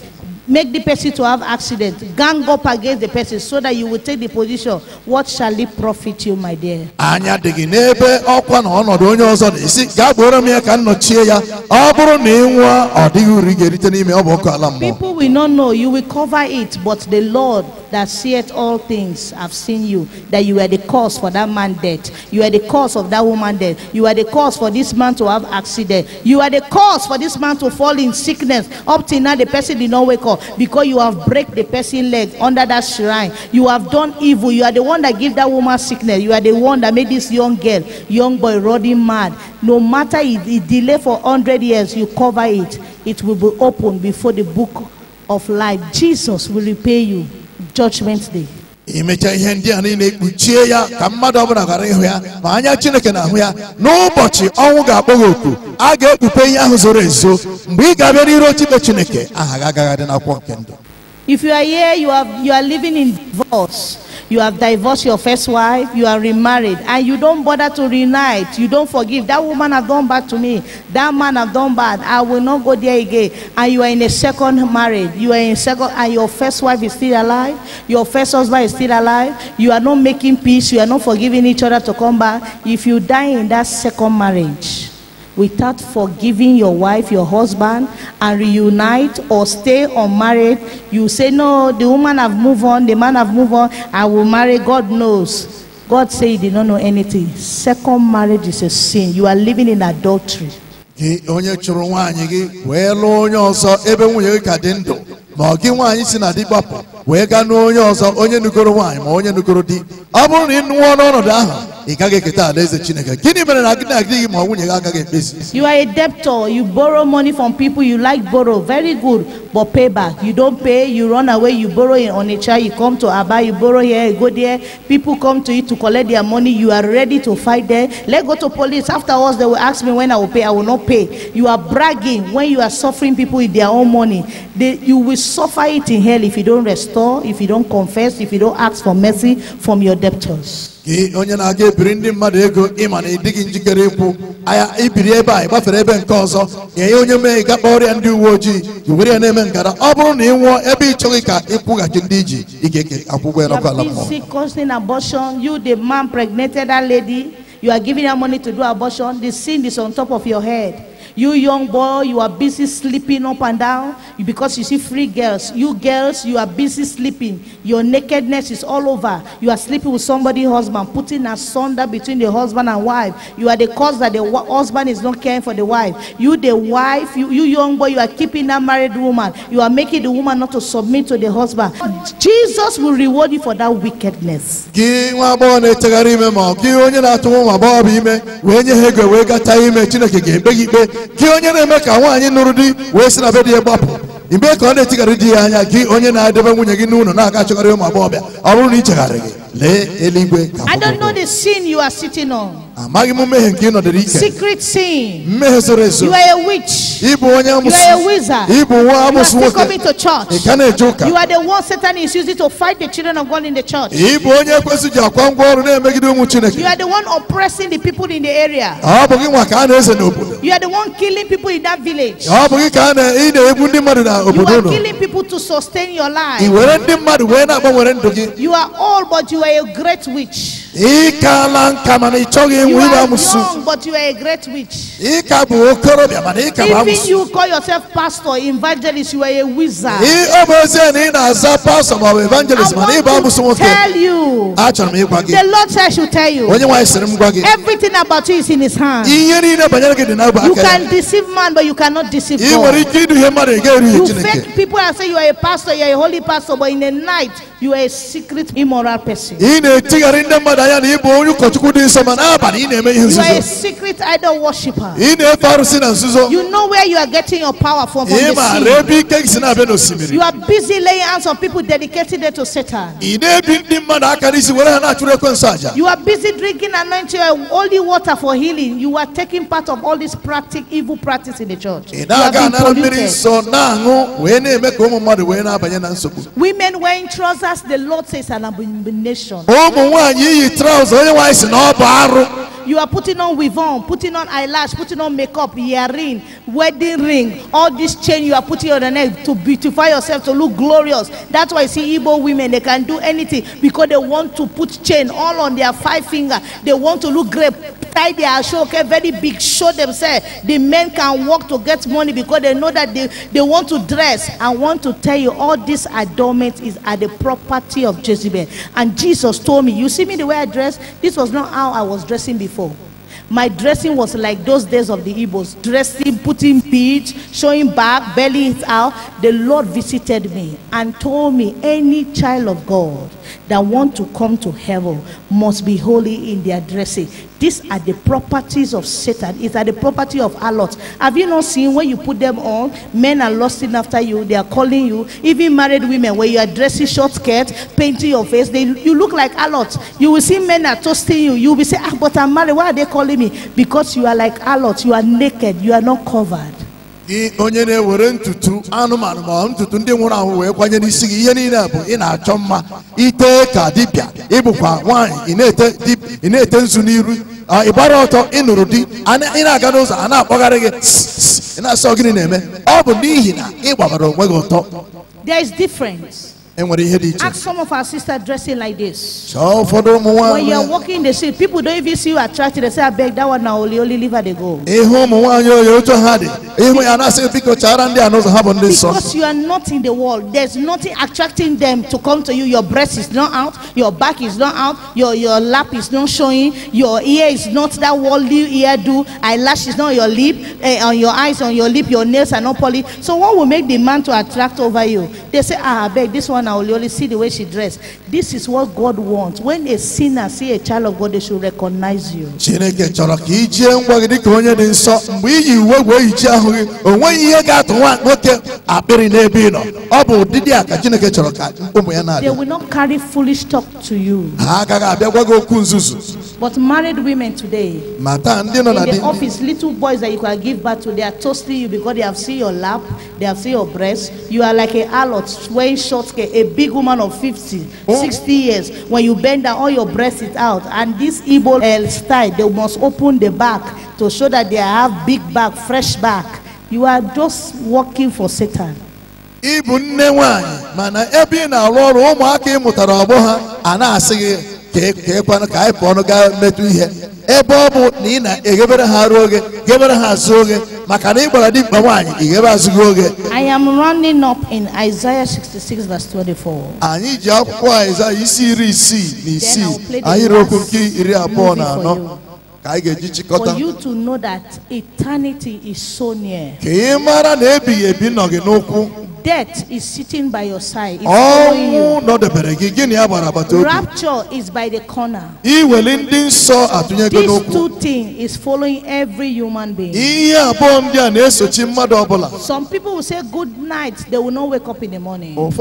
B: make the person to have accident gang up against the person so that you will take the position what shall it profit you my dear.
C: anyị adịghị n'ebe ọkwa na ọnọdụ onye ọzọ na-esi gaa gboro m ya ka m ya ọ bụrụ na ị nwụọ ọ dịghị uru ị ga-erite n'ime ọ bụ ọkụ ala mmụọ.
B: people will not know you will cover it but the lord that seeth all things have seen you, that you were the cause for that man dead. You were the cause of that woman dead. You were the cause for this man to have accident. You are the cause for this man to fall in sickness. Up till now, the person did not wake up because you have break the person leg under that shrine. You have done evil. You are the one that give that woman sickness. You are the one that made this young girl, young boy, running mad. No matter it, it delay for hundred years, you cover it. It will be open before the book of life. Jesus will repay you. judgment day
C: ihe ndị a niile kpuchie ya ka mmadụ ọbụla ghara ịhụ ya ma anya chineke na-ahụ ya n'ụbọchị ọnwụ ga-akpọ oku a ga-ekpupe ihe ahụ zoro ezo mgbe ị ga-abịa otu ochibe chineke aha gị agaghị dị n'akwụkwọ nke ndụ
B: If you are here, you are, you are living in divorce. You have divorced your first wife, you are remarried, and you don't bother to reunite. You don't forgive. That woman has done bad to me. That man has done bad. I will not go there again. And you are in a second marriage. You are in second, and your first wife is still alive. Your first husband is still alive. You are not making peace. You are not forgiving each other to come back. If you die in that second marriage, without forgiving your wife, your husband, and reunite or stay unmarried, you say, No, the woman have moved on, the man have moved on, I will marry, God knows. God say he did not know anything. Second marriage is a sin. You are living in adultery.
C: gị onye chụrụ nwaanyị gị wee lụọ onye ọzọ ebe nwunye gị ka dị ndụ ma ọ gị nwaanyị si na di gbapụ onye ma onye di chineke gịnị ma
B: you are a debtor you borrow money from people you like borrow very good but pay back you don't pay you run away you borrow in onitsha you come to aba you borrow here you go there people come to you to collect their money you are ready to fight there let go to police afterwards they will ask me when i will pay i will not pay you are bragging when you are suffering people with their own money they, you will suffer it in hell if you don't rest. restore if you don't confess if you don't ask for mercy from your debtors.
C: onye na-aga ebiri ndị mmadụ ego ịma na ịdịghị njikere ikwu aya ibiri ebe a ịgbafere ebe nke ọzọ nye onye mee ịga kpọrịa ndị uwe ojii iwere ya na-eme ngara ọ bụrụ na ị nwụọ ebe ị chọghị ka ịkwụghachi ndị iji ị eke akwụkwọ ya ala mmụọ.
B: causing abortion you the man pregnated that lady you are giving her money to do abortion the sin is on top of your head. You young boy, you are busy sleeping up and down because you see free girls. You girls, you are busy sleeping. Your nakedness is all over. You are sleeping with somebody, husband, putting asunder between the husband and wife. You are the cause that the husband is not caring for the wife. You, the wife, you, you young boy, you are keeping that married woman. You are making the woman not to submit to the husband. Jesus will reward you for that wickedness.
C: gị onye na-eme ka nwaanyị nụrụ di wee si na be di ya gbapụ mgbe ka ọ na-etigharị di ya anya gị onye na-edebe nwunye gị n'ụlọ na-aga achọgharị ụmụ agbọghọbịa ọ bụrụ na ị chegharị gị I
B: don't know the sin you are sitting on. Secret sin.
C: You are a witch. You are a wizard. You are still coming
B: to church. You are the one Satan is using to fight the children of God in the church. You are the one oppressing the people in the area. You are the one killing people in that village. You are killing people to sustain your life. You are all but you you are a great witch.
C: You are young
B: but you are a great witch.
C: Even you
B: call yourself pastor, evangelist, you are a wizard. i
C: want to tell
B: you.
C: The
B: Lord says should tell you.
C: Everything
B: about you is in his hand.
C: You can
B: deceive man but you cannot deceive God.
C: You fake
B: people and say you are a pastor, you are a holy pastor but in the night you are a secret immoral person i
C: ah, You are a
B: secret idol worshiper. You know where you are getting your power from from the sea. You are busy laying hands on people dedicated to Satan. You are busy drinking anointing holy water for healing. You are taking part of all this practic evil practice in the church. ị na-aga anara Women wearing trousers, the Lord says an abomination. nation. ụmụ nwanyị
C: iyi traụza onye nwanyị si na ọ bụ arụ
B: you are putting on weave on putting on eyelash putting on makeup earring wedding ring all this chain you are putting on your neck to beautify yourself to look glorious that's why you see igbo women they can do anything because they want to put chain all on their five finger they want to look great tie their show okay very big show themselves the men can work to get money because they know that they they want to dress i want to tell you all this adornment is at the property of jezebel and jesus Jesus told me, You see me the way I dress? This was not how I was dressing before. My dressing was like those days of the Igbos dressing, putting peach, showing back, belly out. The Lord visited me and told me, Any child of God that want to come to heaven must be holy in their dressing. These are the properties of Satan. It's are the property of harlots. Have you not seen when you put them on, men are lusting after you, they are calling you. Even married women, when you are dressing short skirt, painting your face, they, you look like harlots. You will see men are toasting you. You will say, ah, but I'm married. Why are they calling me? Because you are like harlots. You are naked. You are not covered.
C: onye na-ewere ntutu anụmanụ ma ntutu ndị nwụrụ anwụ wee kwanye n'isi gị ihe niile bụ ị na-achọ mma ite ka dibịa ịbụkwa nwaanyị ịna ete nzu n'iru ịgbara ọtọ ịnụrụ di ị na-aga n'ụzọ a na-akpọgharị gị ị na-asọ gịnị na-eme ọ bụ n'ihi na ị gbabara onwe gị ọtọ Ask
B: some of our sisters dressing like this.
C: When you are
B: walking the street, people don't even see you attracted. They say, I beg that one na only, only leave her, they go.
C: Eh, eh, Because
B: you are not in the world, there's nothing attracting them to come to you. Your breast is not out, your back is not out, your, your lap is not showing, your ear is not that worldly ear do. eyelash is not your lip, eh, on your eyes, on your lip, your nails are not polished. So, what will make the man to attract over you? They say, ah, I beg this one. I will only see the way she dressed. This is what God wants. When a sinner see a child of God, they should recognize you.
C: Chineke chọrọ ka i jie ngwa gị dịka onye dị nsọ mgbe iyi uwe wee yichie ahụ gị o ihe ga-atụ nwa nwoke akpịrị n'ebe ị nọ ọ bụ ụdịdị a ka Chineke chọrọ ka ụmụ ya na-abịa. They will
B: not carry foolish talk to you. Ha
C: agaghị abịa gwa gị
D: okwu nzuzu.
B: But married women today, in the office, little boys that you can give birth to, they are toasting you because they have seen your lap, they have seen your breast. You are like a harlot wearing short a big woman of 50, oh. years. When you bend down, all your breast is out. And this Igbo uh, style, they must open the back to show that they have big back, fresh back. You are just working for Satan. ịbụ nne nwanyị
C: mana ebe ị na-arụ ọrụ ụmụaka ị ọgbọ ha a na-asị gị ka e kwanụ ka anyị pụọnụ gaa metụ ihe ebe ọ bụ na ị na-eghebere ha ruo oge ghebere ha azụ oge maka na ị gbara dimkpa nwaanyị ị ghebe azụghị oge
B: I am running up in Isaiah 66 verse 24.
C: anyị ji akwụkwọ Aịzaya isi iri isii na isii anyị rokwu nke iri abụọ na anọ for you
B: to know that eternity is so near. death is sitting by your side. ọnwụ
C: nọdebere gị
B: rapture is by the corner.
C: This two
B: things is following every human being. some people will say good night they will not wake up in the morning. some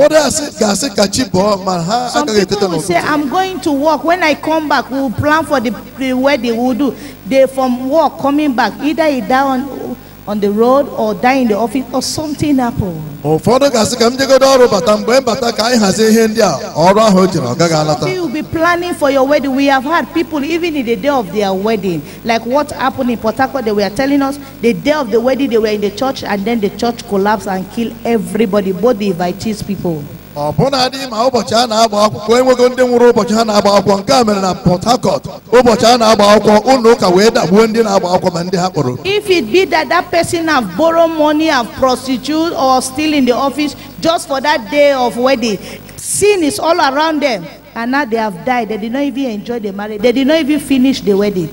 C: people will say i'm
B: going to work when i come back we plan for the, the wedding we'll do They from work coming back. Either he die on, on the road or die in the office or something happen.
C: ụfọdụ gasị ka m jegode ọrụ bata mgbe m bata ka anyị hazie ihe ndị a ọrụ ahụ jiri ọ gaghị alata. Some
B: will be planning for your wedding. We have had people even in the day of their wedding like what happened in Port Harcourt they were telling us the day of the wedding they were in the church and then the church collapse and kill everybody both the invitees people ọ bụnadị ma ụbọchị a na-agba akwụkwọ enweghị ndị nwụrụ ụbọchị ha na-agba akwụkwọ nke a mere na
C: Port Harcourt ụbọchị a na-agba akwụkwọ ụlọ ụka wee dagbuo ndị na-agba akwụkwọ ma ndị ha kpọrọ
B: if it be that that person have borrow money have prostitute or still in the office just for that day of wedding sin is all around them and now they have died they did not even enjoy the marriage they did not even finish the wedding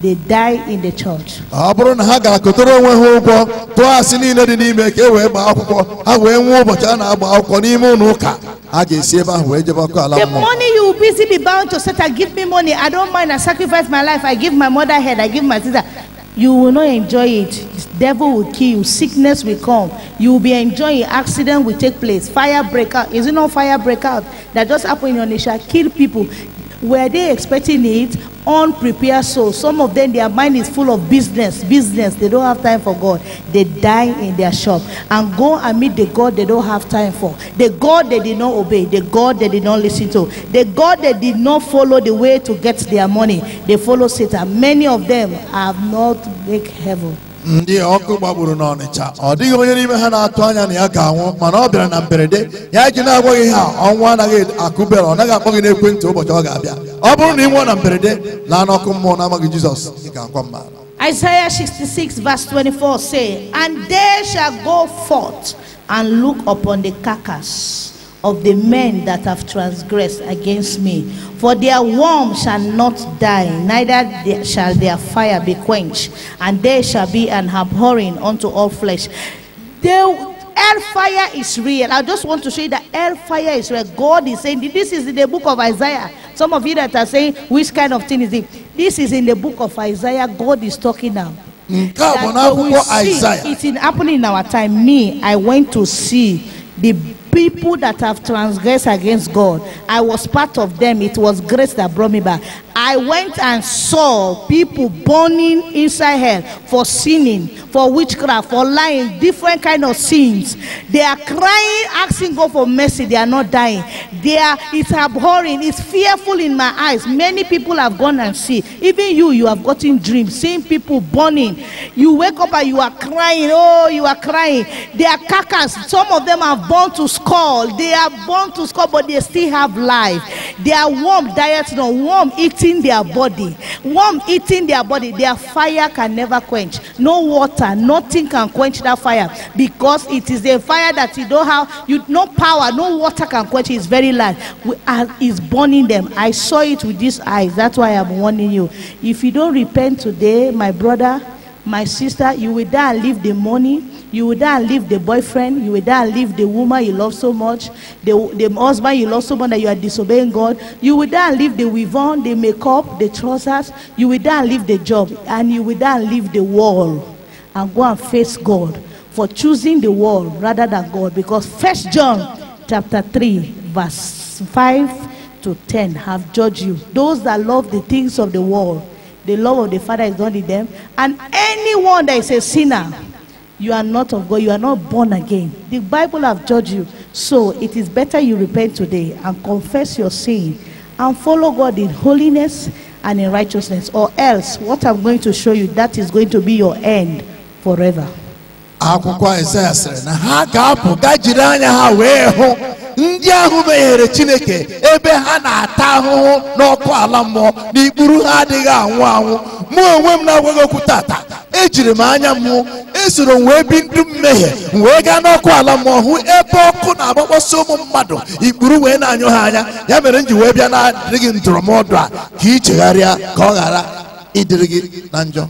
B: they die in the church.
C: ọ bụrụ na ha gara kụtara onwe ha ụgwọ tụọ asị niile dị n'ime ka e wee gbaa akwụkwọ ha wee nwee ụbọchị a na-agba akwụkwọ n'ime ụlọ ụka a ga-esi ebe ahụ wee jebe ọkụ ala mmụọ. the
B: money you busy be bound to satan give me money i don't mind i sacrifice my life i give my mother head i give my sister you will not enjoy it devil will kill you sickness will come you will be enjoying accident will take place fire break out is it not fire break out that just happen in onisha kill people Were they expecting it? Unprepared souls. Some of them, their mind is full of business, business. They don't have time for God. They die in their shop and go and meet the God they don't have time for. The God they did not obey. The God they did not listen to. The God they did not follow the way to get their money. They follow Satan. Many of them have not make heaven. ndị
C: ọkụ gbagburu n'ọnịcha ọ dịghị onye n'ime ha na-atụ anya na ya ga-anwụ mana ọ bịara na mberede ya ji na-agwaghị ha ọnwụ anaghị akụbere ọ naghị akpọ gị n'ekwentị ụbọchị ọ ga-abịa ọ bụrụ na ị nwụọ na mberede laa n'ọkụ mmụọ n'amaghị Jizọs ị ga-akwa mma
B: Isaiah 66 verse 24 say, And they shall go forth and look upon the carcass. of the men that have transgressed against me. For their worm shall not die, neither shall their fire be quenched, and they shall be an abhorring unto all flesh. They, hellfire is real. I just want to show you that hellfire is real. God is saying this is in the book of Isaiah. Some of you that are saying, which kind of thing is it? This is in the book of Isaiah. God is talking now. That we see it in happening in our time. Me, I went to see the people that have transgressed against God. I was part of them. It was grace that brought me back. I went and saw people burning inside hell for sinning, for witchcraft, for lying, different kind of sins. They are crying, asking God for mercy. They are not dying. They are. It's abhorring. It's fearful in my eyes. Many people have gone and see. Even you, you have gotten dreams, seeing people burning. You wake up and you are crying. Oh, you are crying. They are carcass. Some of them are born to score. They are born to score, but they still have life. They are warm dieting on warm eating their body. Warm eating their body. Their fire can never quench. No water, nothing can quench that fire because it is a fire that you don't have. You no power, no water can quench. It's very light. is burning them. I saw it with these eyes. That's why I'm warning you. If you don't repent today, my brother my sister, you will die and leave the money, you will die and leave the boyfriend, you will die and leave the woman you love so much, the, the husband you love so much that you are disobeying God, you will die and leave the weave-on, the makeup, the trousers, you will die and leave the job, and you will die and leave the world and go and face God for choosing the world rather than God. Because First John chapter three verse five to ten have judged you. Those that love the things of the world The love of the Father is not in them. And anyone that is a sinner, you are not of God. You are not born again. The Bible have judged you. So it is better you repent today and confess your sin and follow God in holiness and in righteousness. Or else, what I'm going to show you, that is going to be your end forever.
C: akwụkwọ Aịzaya sịrị na ha ga-apụ ga jiri anya ha wee hụ ndị ahụ meghere Chineke ebe ha na-ata ahụhụ n'ọkụ ala mmụọ na ikpuru ha adịghị anwụ anwụ mụ onwe m na-agwaghị okwu tata ejiri m anya mụ esoro m wee bi ndụ mmehie wee gaa n'ọkụ ala mmụọ hụ ebe ọkụ na-agbakpọsị ụmụ mmadụ ikpuru wee na-anyụ ha anya ya mere m ji wee bịa na-adịghị ndụrụmọdụ a ka ị chegharịa ka ọ ghara ịdịrị gị na njọ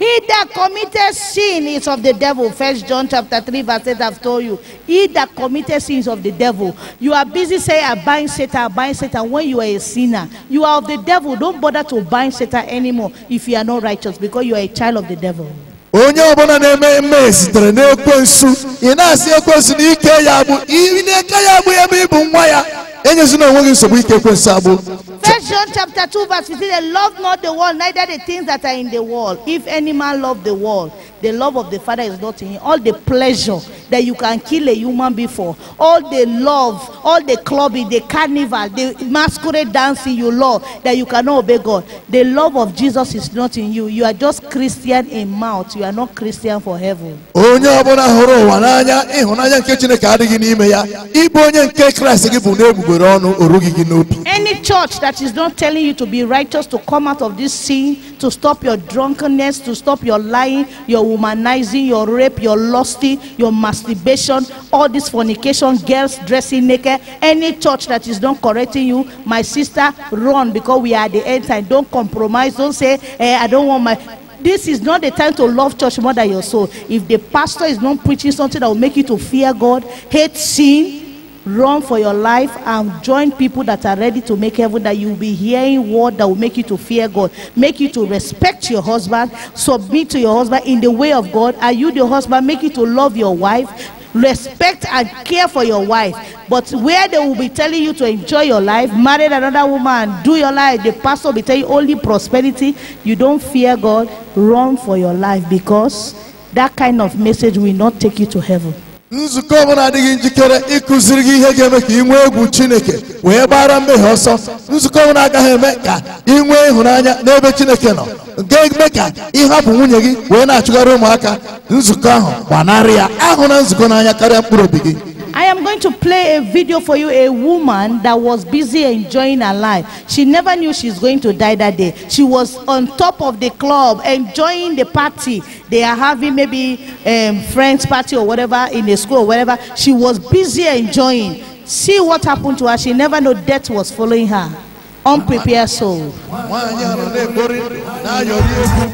B: He that committed sin is of the devil. First John chapter 3, verse 8, I've told you. He that committed sin is of the devil. You are busy saying, I bind Satan, I bind Satan when you are a sinner. You are of the devil. Don't bother to bind Satan anymore if you are not righteous because you are a child of the devil.
C: onye ọbụla na-eme eme sitere n'ekwensu ị na-asị ekwensu na ike ya bụ ị na-eke ya bụ ebe ị bụ nwa ya enyezina enweghị nsogbu ike ekwensu abụ
B: First John chapter 2 verse 15 they love not the world neither the things that are in the world if any man love the world the love of the father is not in him all the pleasure that you can kill a human before. All the love, all the clubbing, the carnival, the masquerade dancing you love that you cannot obey God. The love of Jesus is not in you. You are just Christian in mouth. You are not Christian for heaven.
C: onye ọbụla hụrụ ụwa n'anya ịhụnanya nke chineke adịghị n'ime ya ịbụ onye nke kraịst gị bụ n'egbugbere ọnụ orughị gị n'obi
B: any church that is not telling you to be righteous to come out of this sin to stop your drunkenness to stop your lying your womanizing your rape your lusty your mas masturbation, all this fornication, girls dressing naked, any church that is not correcting you, my sister, run because we are at the end time. Don't compromise. Don't say, eh, I don't want my. This is not the time to love church more than your soul. If the pastor is not preaching something that will make you to fear God, hate sin, Run for your life and join people that are ready to make heaven that you'll be hearing word that will make you to fear God, make you to respect your husband, submit to your husband in the way of God. Are you the husband? Make you to love your wife, respect and care for your wife. But where they will be telling you to enjoy your life, marry another woman, do your life, the pastor will be telling you only prosperity, you don't fear God, run for your life because that kind of message will not take you to heaven.
C: nzukọ ọbụla adịghị njikere ịkụziri gị ihe ga-eme ka ị nwee egwu chineke wee gbara mmehie ọsọ nzukọ ọbụla agaghị eme ka ị nwee ịhụnanya n'ebe chineke nọ ga eme ka ịhapụ nwunye gị wee na-achụgharị ụmụaka nzukọ ahụ gbanarị ya ahụ na nzukọ n'anya karịa mkpụrụ obi gị
B: I am going to play a video for you. A woman that was busy enjoying her life. She never knew she's going to die that day. She was on top of the club enjoying the party. They are having maybe um, friends party or whatever in the school or whatever. She was busy enjoying. See what happened to her. She never knew death was following her unprepared soul.
C: nwaanyị ahụ na-egbori na-ayọrị egwu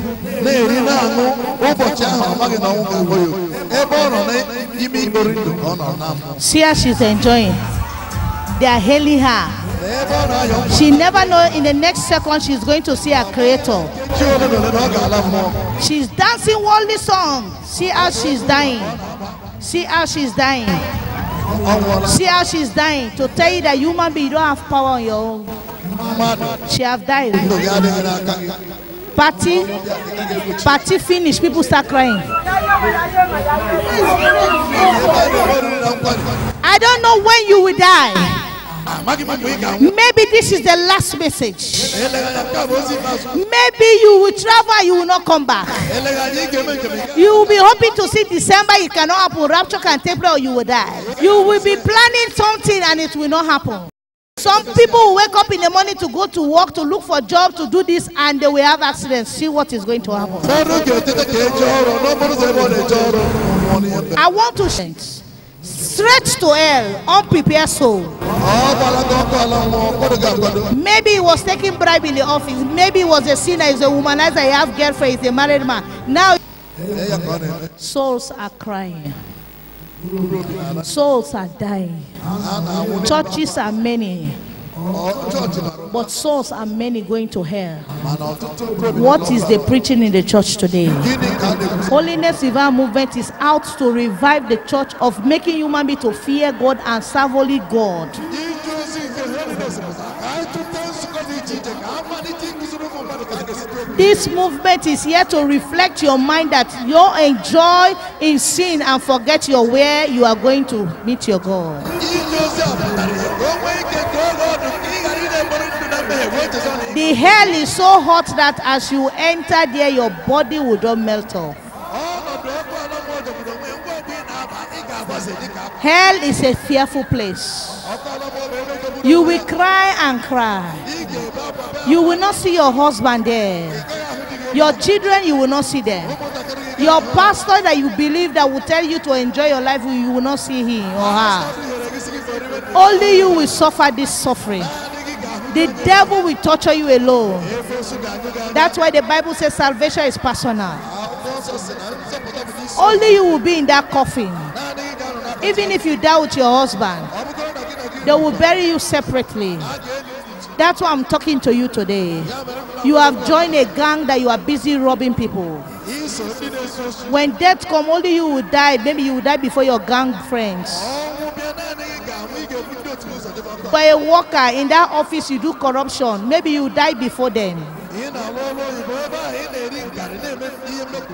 C: na-eri na-aṅụ ụbọchị ahụ amaghị na ọnwụ ga-agba ya ebe ọ nọ n'ime igbori ndụ ka ọ nọ na
B: See how she's enjoying. They are hailing her. She never know in the next second she's going to see her creator. She's dancing worldly song. See how she's dying. See how she's dying. See how she's dying to tell you that human being you don't have power on your own. She have died. Party, party finish. People start crying. I don't know when you will die. Maybe this is the last message. Maybe you will travel, you will not come back. You will be hoping to see December, it cannot happen. Rapture can take place or you will die. You will be planning something and it will not happen. Some people will wake up in the morning to go to work, to look for a job, to do this, and they will have accidents. See what is going to happen. I want to. Change straight to hell, unprepared soul. Maybe he was taking bribe in the office. Maybe he was a sinner, he's a womanizer, he has girlfriend, he's a married man. Now souls are crying. Souls are dying. Churches are many. But souls are many going to hell. What is the preaching in the church today? Holiness Divine Movement is out to revive the church of making human beings to fear God and serve only God. This movement is here to reflect your mind that you enjoy in sin and forget your where you are going to meet your God. The hell is so hot that as you enter there, your body will not melt off. Hell is a fearful place. You will cry and cry. You will not see your husband there. Your children, you will not see them. Your pastor that you believe that will tell you to enjoy your life, you will not see him or
C: her.
B: Only you will suffer this suffering. The devil will torture you alone. That's why the Bible says salvation is personal.
C: Only you will
B: be in that coffin. Even if you die with your husband, They will bury you separately. That's why I'm talking to you today. You have joined a gang that you are busy robbing people. When death come, only you will die. Maybe you will die before your gang friends. For a worker in that office, you do corruption. Maybe you die before them.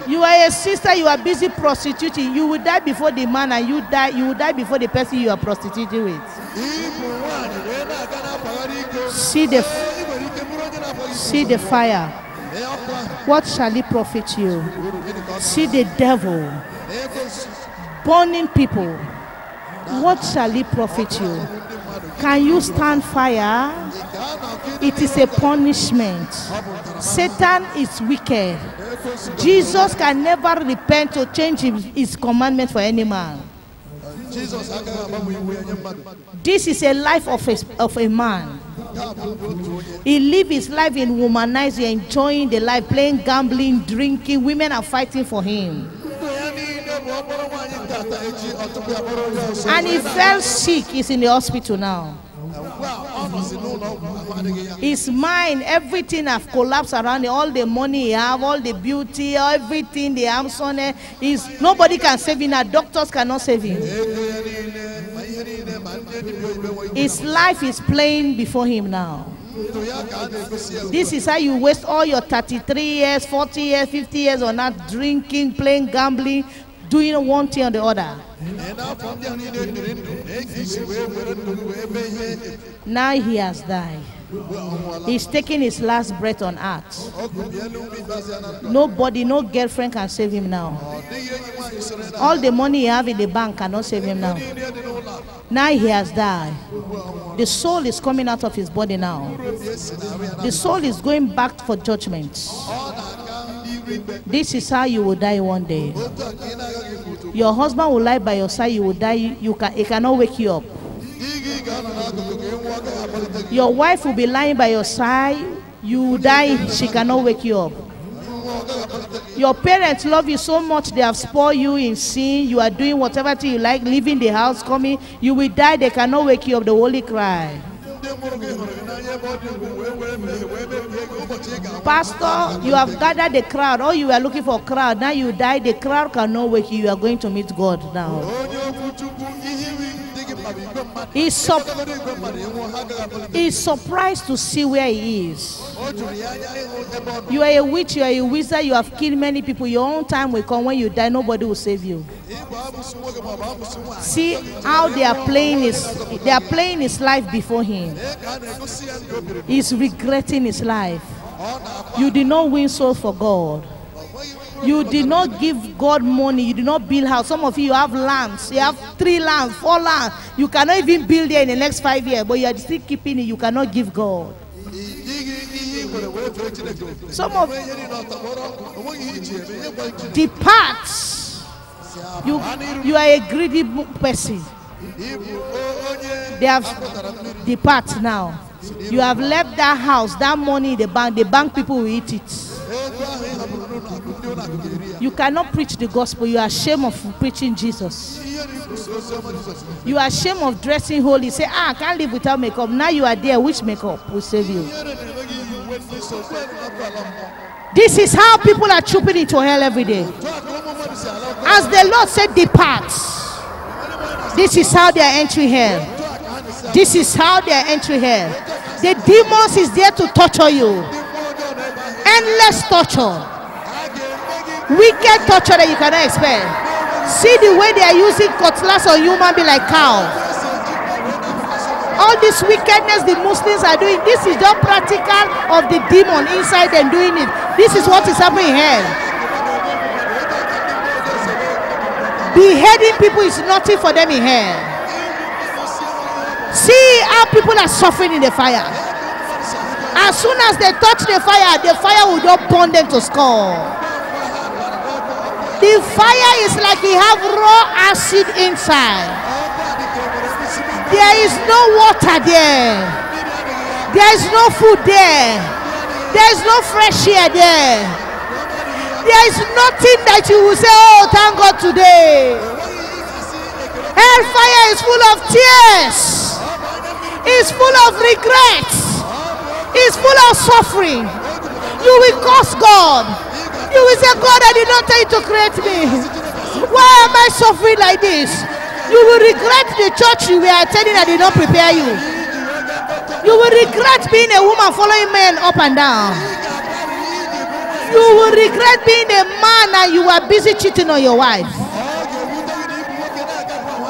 B: You are a sister, you are busy prostituting. You will die before the man, and you die, you will die before the person you are prostituting with. See the, see the fire. What shall it profit you? See the devil burning people. What shall it profit you? Can you stand fire? It is a punishment. Satan is wicked. Jesus can never repent or change his commandment for any man. This is a life of a, of a man. He live his life in womanizing, enjoying the life, playing, gambling, drinking. Women are fighting for him.
C: And he fell sick.
B: He's in the hospital now. It's mine. Everything have collapsed around it. All the money he have, all the beauty, everything they have, son, is eh, nobody can save him. Now doctors cannot save him. His life is playing before him now.
C: This is how you waste
B: all your 33 years, 40 years, 50 years on that drinking, playing, gambling, doing one thing or the other. Now he has died. He's taking his last breath on earth.
C: Nobody,
B: no girlfriend can save him now. All the money he have in the bank cannot save him now. Now he has died. The soul is coming out of his body now. The soul is going back for judgment. This is how you will die one day. Your husband will lie by your side, you will die, you can, he cannot wake you up. Your wife will be lying by your side, you will die, she cannot wake you up. Your parents love you so much, they have spoiled you in sin. You are doing whatever thing you like, leaving the house, coming. You will die, they cannot wake you up. The holy cry. Pastor, you have gathered the crowd. All you were looking for crowd. Now you die. The crowd cannot wake you. You are going to meet God now. He's, sup- he's surprised to see where he is. You are a witch, you are a wizard, you have killed many people. Your own time will come. When you die, nobody will save you. See how they are playing his they are playing his life before him. He's regretting his life. You did not win soul for God. You did not give God money. You did not build house. Some of you, you have lands. You have three lands, four lands. You cannot even build there in the next five years, but you are still keeping it. You cannot give God. Some of depart. You you are a greedy person. They have depart now. You have left that house, that money in the bank, the bank people will eat it. You cannot preach the gospel. You are ashamed of preaching Jesus. You are ashamed of dressing holy. Say, ah, I can't live without makeup. Now you are there. Which makeup will save you? This is how people are trooping into hell every day.
C: As the Lord said, depart.
B: This is how they are entering hell. This is how they are entering here. The demons is there to torture you. Endless torture. Wicked torture that you cannot expect. See the way they are using cutlass on human being like cow. All this wickedness the Muslims are doing, this is not practical of the demon inside and doing it. This is what is happening here. Beheading people is nothing for them in here. See how people are suffering in the fire. As soon as they touch the fire, the fire will just burn them to skull. The fire is like you have raw acid inside. There is no water there. There is no food there. There is no fresh air there. There is nothing that you will say, oh, thank God today. Hellfire is full of tears. is full of regrets, is full of suffering. You will curse God. You will say, God, I did not tell you to create me. Why am I suffering like this? You will regret the church you were attending that did not prepare you. You will regret being a woman following men up and down. You will regret being a man and you were busy cheating on your wife.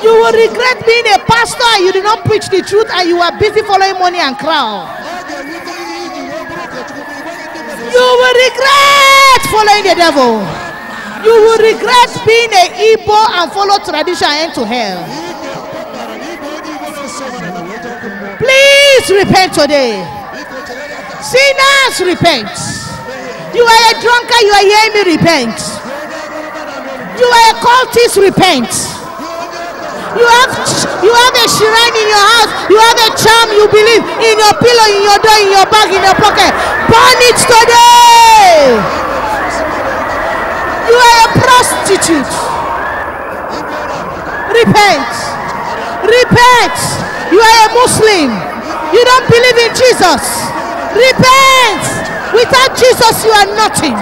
B: You will regret being a pastor you did not preach the truth and you are busy following money and crown. You will regret following the devil. You will regret being a Igbo and follow tradition and to hell. Please repent today. Sinners, repent. You are a drunkard, you are hearing me repent. You are a cultist, repent. You have you have a shrine in your house. You have a charm you believe in your pillow, in your door, in your bag, in your pocket. Burn it today. You are a prostitute. Repent. Repent. You are a Muslim. You don't believe in Jesus. Repent. Without Jesus, you are nothing.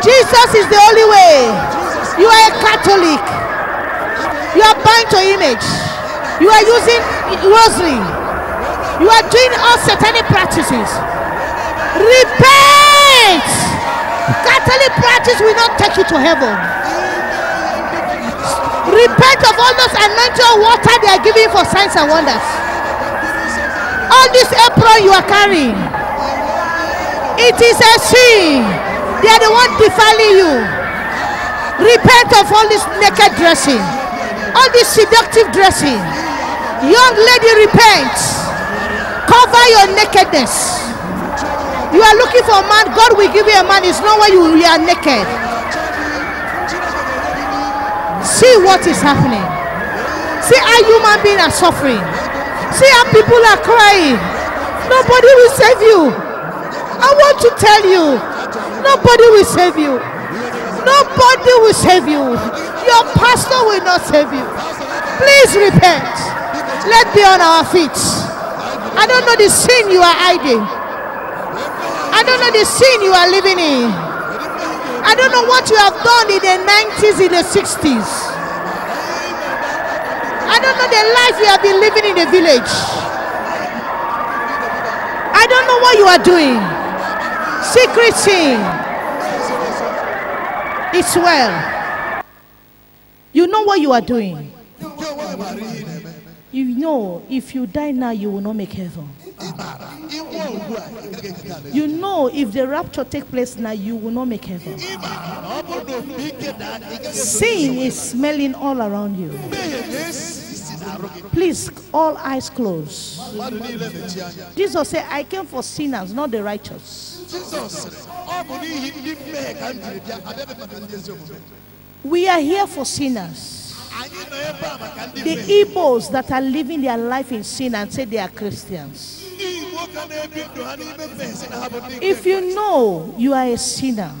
B: Jesus is the only way. You are a Catholic. You are buying to image. You are using rosary. You are doing all satanic practices. Repent! Catholic practice will not take you to heaven. Repent of all those anointed water they are giving for signs and wonders. All this apron you are carrying, it is a sin. They are the one defiling you. Repent of all this naked dressing all this seductive dressing. Young lady, repent. Cover your nakedness. You are looking for a man, God will give you a man. It's not when you, you are naked. See what is happening. See how human beings are suffering. See how people are crying. Nobody will save you. I want to tell you, nobody will save you. Nobody will save you. Your pastor will not save you. Please repent. Let's be on our feet. I don't know the sin you are hiding. I don't know the sin you are living in. I don't know what you have done in the 90s, in the 60s. I don't know the life you have been living in the village. I don't know what you are doing. Secret sin. It's well. You know what you are doing. You know if you die now, you will not make heaven. You know if the rapture takes place now, you will not make heaven.
A: Sin is
B: smelling all around you. Please, all eyes closed. Jesus said, I came for sinners, not the righteous. We are here for sinners. The Igbos that are living their life in sin and say they are Christians. If you know you are a sinner,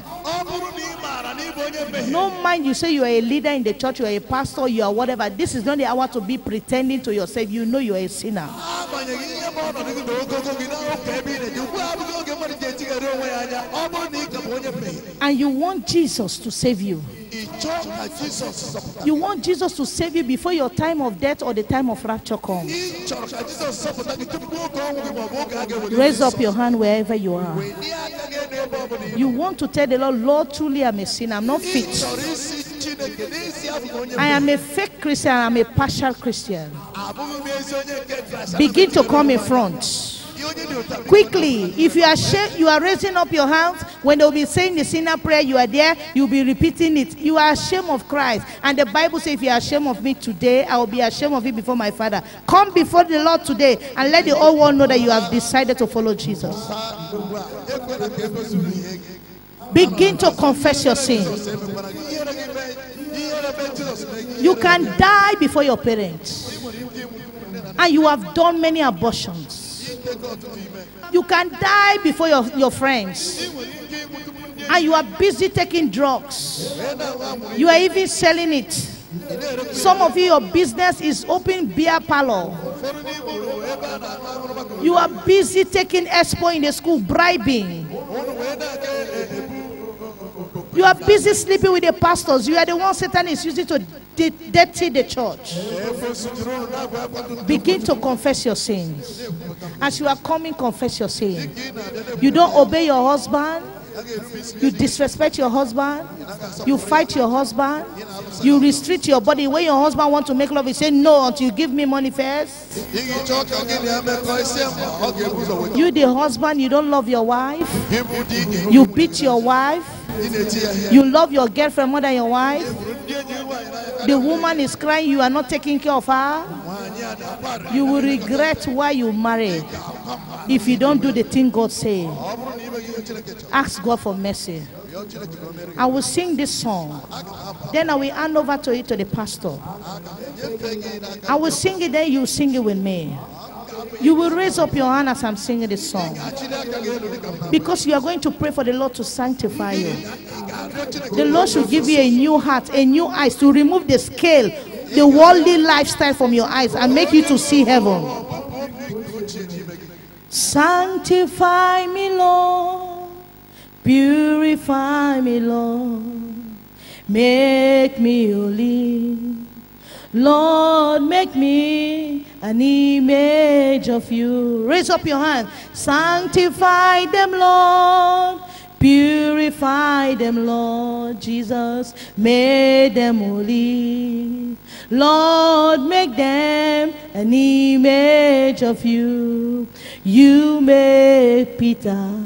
B: no mind you say you are a leader in the church, you are a pastor, you are whatever. This is not the hour to be pretending to yourself. You know you are a sinner. And you want Jesus to save you. You want Jesus to save you before your time of death or the time of rapture comes.
C: Raise up your hand
B: wherever you are. You want to tell the Lord, Lord, truly I'm a sinner. I'm not fit. I am a fake Christian. I'm a partial Christian.
C: Begin to come in front.
B: Quickly, if you are you are raising up your hands when they'll be saying the sinner prayer, you are there, you'll be repeating it. You are ashamed of Christ, and the Bible says, "If you are ashamed of me today, I will be ashamed of you before my Father." Come before the Lord today and let the old world know that you have decided to follow Jesus. Begin to confess your sins. You can die before your parents, and you have done many abortions. You can die before your, your friends. And you are busy taking drugs. You are even selling it. Some of you, your business is open beer parlor. You are busy taking expo in the school, bribing. You are busy sleeping with the pastors. You are the one Satan is using to dirty the church. Begin to confess your sins. As you are coming, confess your sins. You don't obey your husband. You disrespect your husband. You fight your husband. You restrict your body. When your husband wants to make love, you say no until you give me money first. You, the husband, you don't love your wife. You beat your wife. You love your girlfriend more than your wife. The woman is crying, you are not taking care of her. You will regret why you marry if you don't do the thing God say. Ask God for mercy. I will sing this song. Then I will hand over to it to the pastor. I will sing it, then you sing it with me. You will raise up your hand as I'm singing this song. Because you are going to pray for the Lord to sanctify you. The Lord should give you a new heart, a new eyes to remove the scale, the worldly lifestyle from your eyes and make you to see heaven. Sanctify me, Lord. Purify me, Lord. Make me holy. Lord, make me an image of you. Raise up your hand. Sanctify them, Lord. Purify them, Lord Jesus. Make them holy. Lord, make them an image of you. You made Peter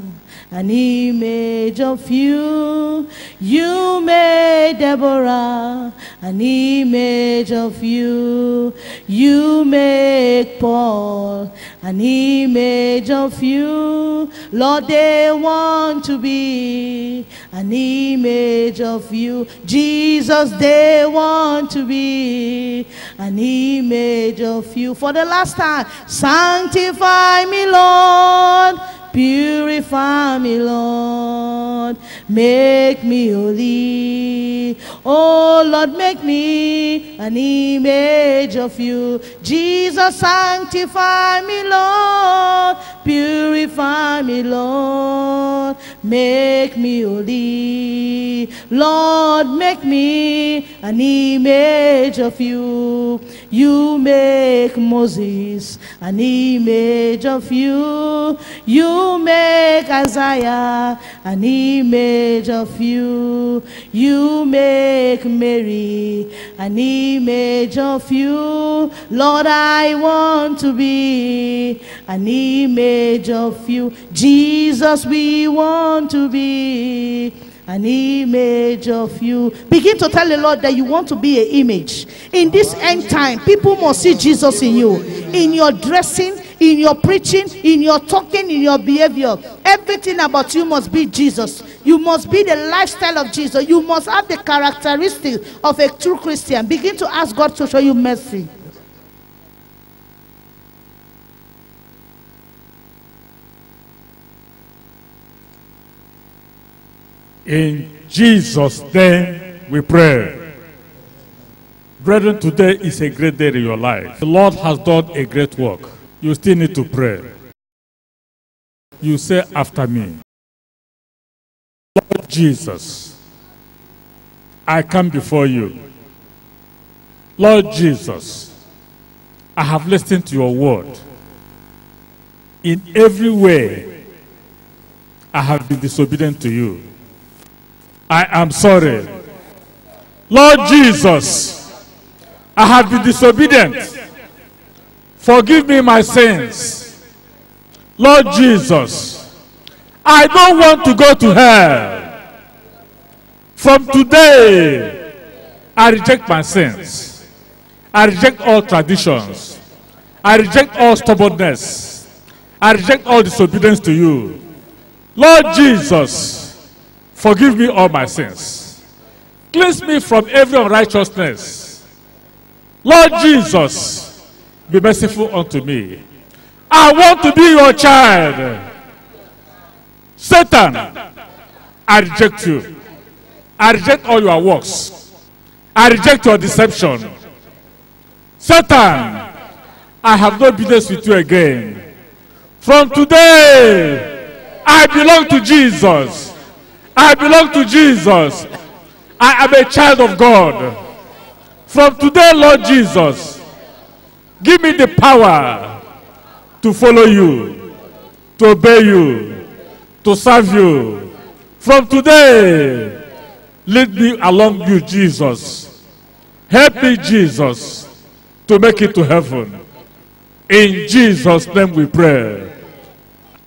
B: an image of you. You made Deborah an image of you. You made Paul an image of you. Lord, they want to be an image of you. Jesus, they want to be an image of you. For the last time, sanctify me, Lord Purify me, Lord. Make me holy. Oh, Lord, make me an image of you. Jesus, sanctify me, Lord. Purify me, Lord. Make me holy. Lord, make me an image of you. You make Moses an image of you. You you make Isaiah an image of you. You make Mary an image of you. Lord, I want to be an image of you. Jesus, we want to be an image of you. Begin to tell the Lord that you want to be an image. In this end time, people must see Jesus in you, in your dressing, in your preaching, in your talking, in your behavior. Everything about you must be Jesus. You must be the lifestyle of Jesus. You must have the characteristics of a true Christian. Begin to ask God to show you mercy.
D: In Jesus' name we pray. Brethren, today is a great day in your life. The Lord has done a great work. You still need to pray. You say after me, Lord Jesus, I come before you. Lord Jesus, I have listened to your word. In every way, I have been disobedient to you. I am sorry. Lord Jesus, I have been disobedient. Forgive me my sins. Lord Jesus, I don't want to go to hell. From today, I reject my sins. I reject all traditions. I reject all stubbornness. I reject all disobedience to you. Lord Jesus, forgive me all my sins. Cleanse me from every unrighteousness. Lord Jesus, Be merciful unto me. I want to be your child. Satan, I reject you. I reject all your works. I reject your deception. Satan, I have no business with you again. From today, I belong to Jesus. I belong to Jesus. I am a child of God. From today, Lord Jesus. Give me the power to follow you, to obey you, to serve you. From today, lead me along you, Jesus. Help me, Jesus, to make it to heaven. In Jesus' name we pray.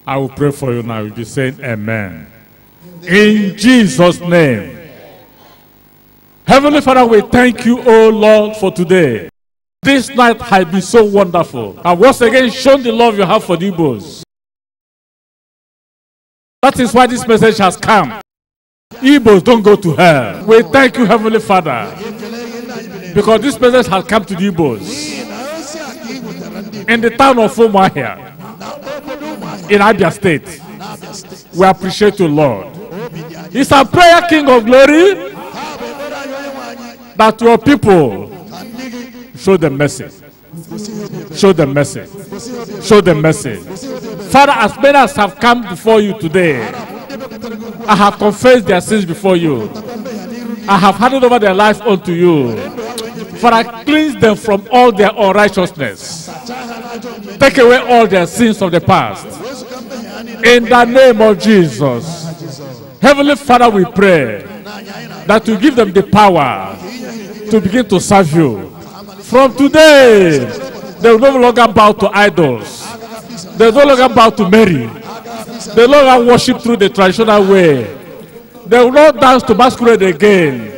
D: I will pray for you now. You'll be saying amen. In Jesus' name. Heavenly Father, we thank you, O Lord, for today. This night has been so wonderful. And once again, shown the love you have for the Igbos. That is why this message has come. Igbos don't go to hell. We thank you, Heavenly Father, because this message has come to the Igbos in the town of Umahia, in Abia State. We appreciate you, Lord. It's a prayer, King of Glory, that your people Show them mercy. Show them mercy. Show them mercy. Father, as many as have come before you today, I have confessed their sins before you. I have handed over their life unto you. Father, cleanse them from all their unrighteousness. Take away all their sins of the past. In the name of Jesus. Heavenly Father, we pray that you give them the power to begin to serve you From today, they will no longer bow to idols. They will no longer bow to Mary. They will no longer worship through the traditional way. They will not dance to masquerade again.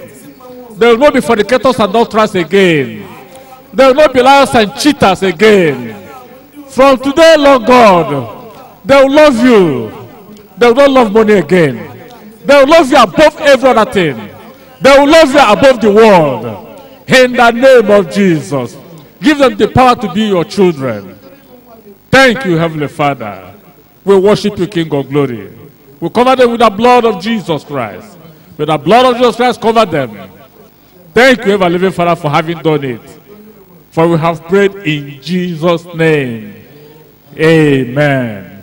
D: They will not be fornicators and adulterers again. They will not be liars and cheaters again. From today, Lord God, they will love you. They will not love money again. They will love you above every other thing. They will love you above the world in the name of Jesus. Give them the power to be your children. Thank you, Heavenly Father. We worship you, King of glory. We cover them with the blood of Jesus Christ. With the blood of Jesus Christ, cover them. Thank you, ever living Father, for having done it. For we have prayed in Jesus' name. Amen.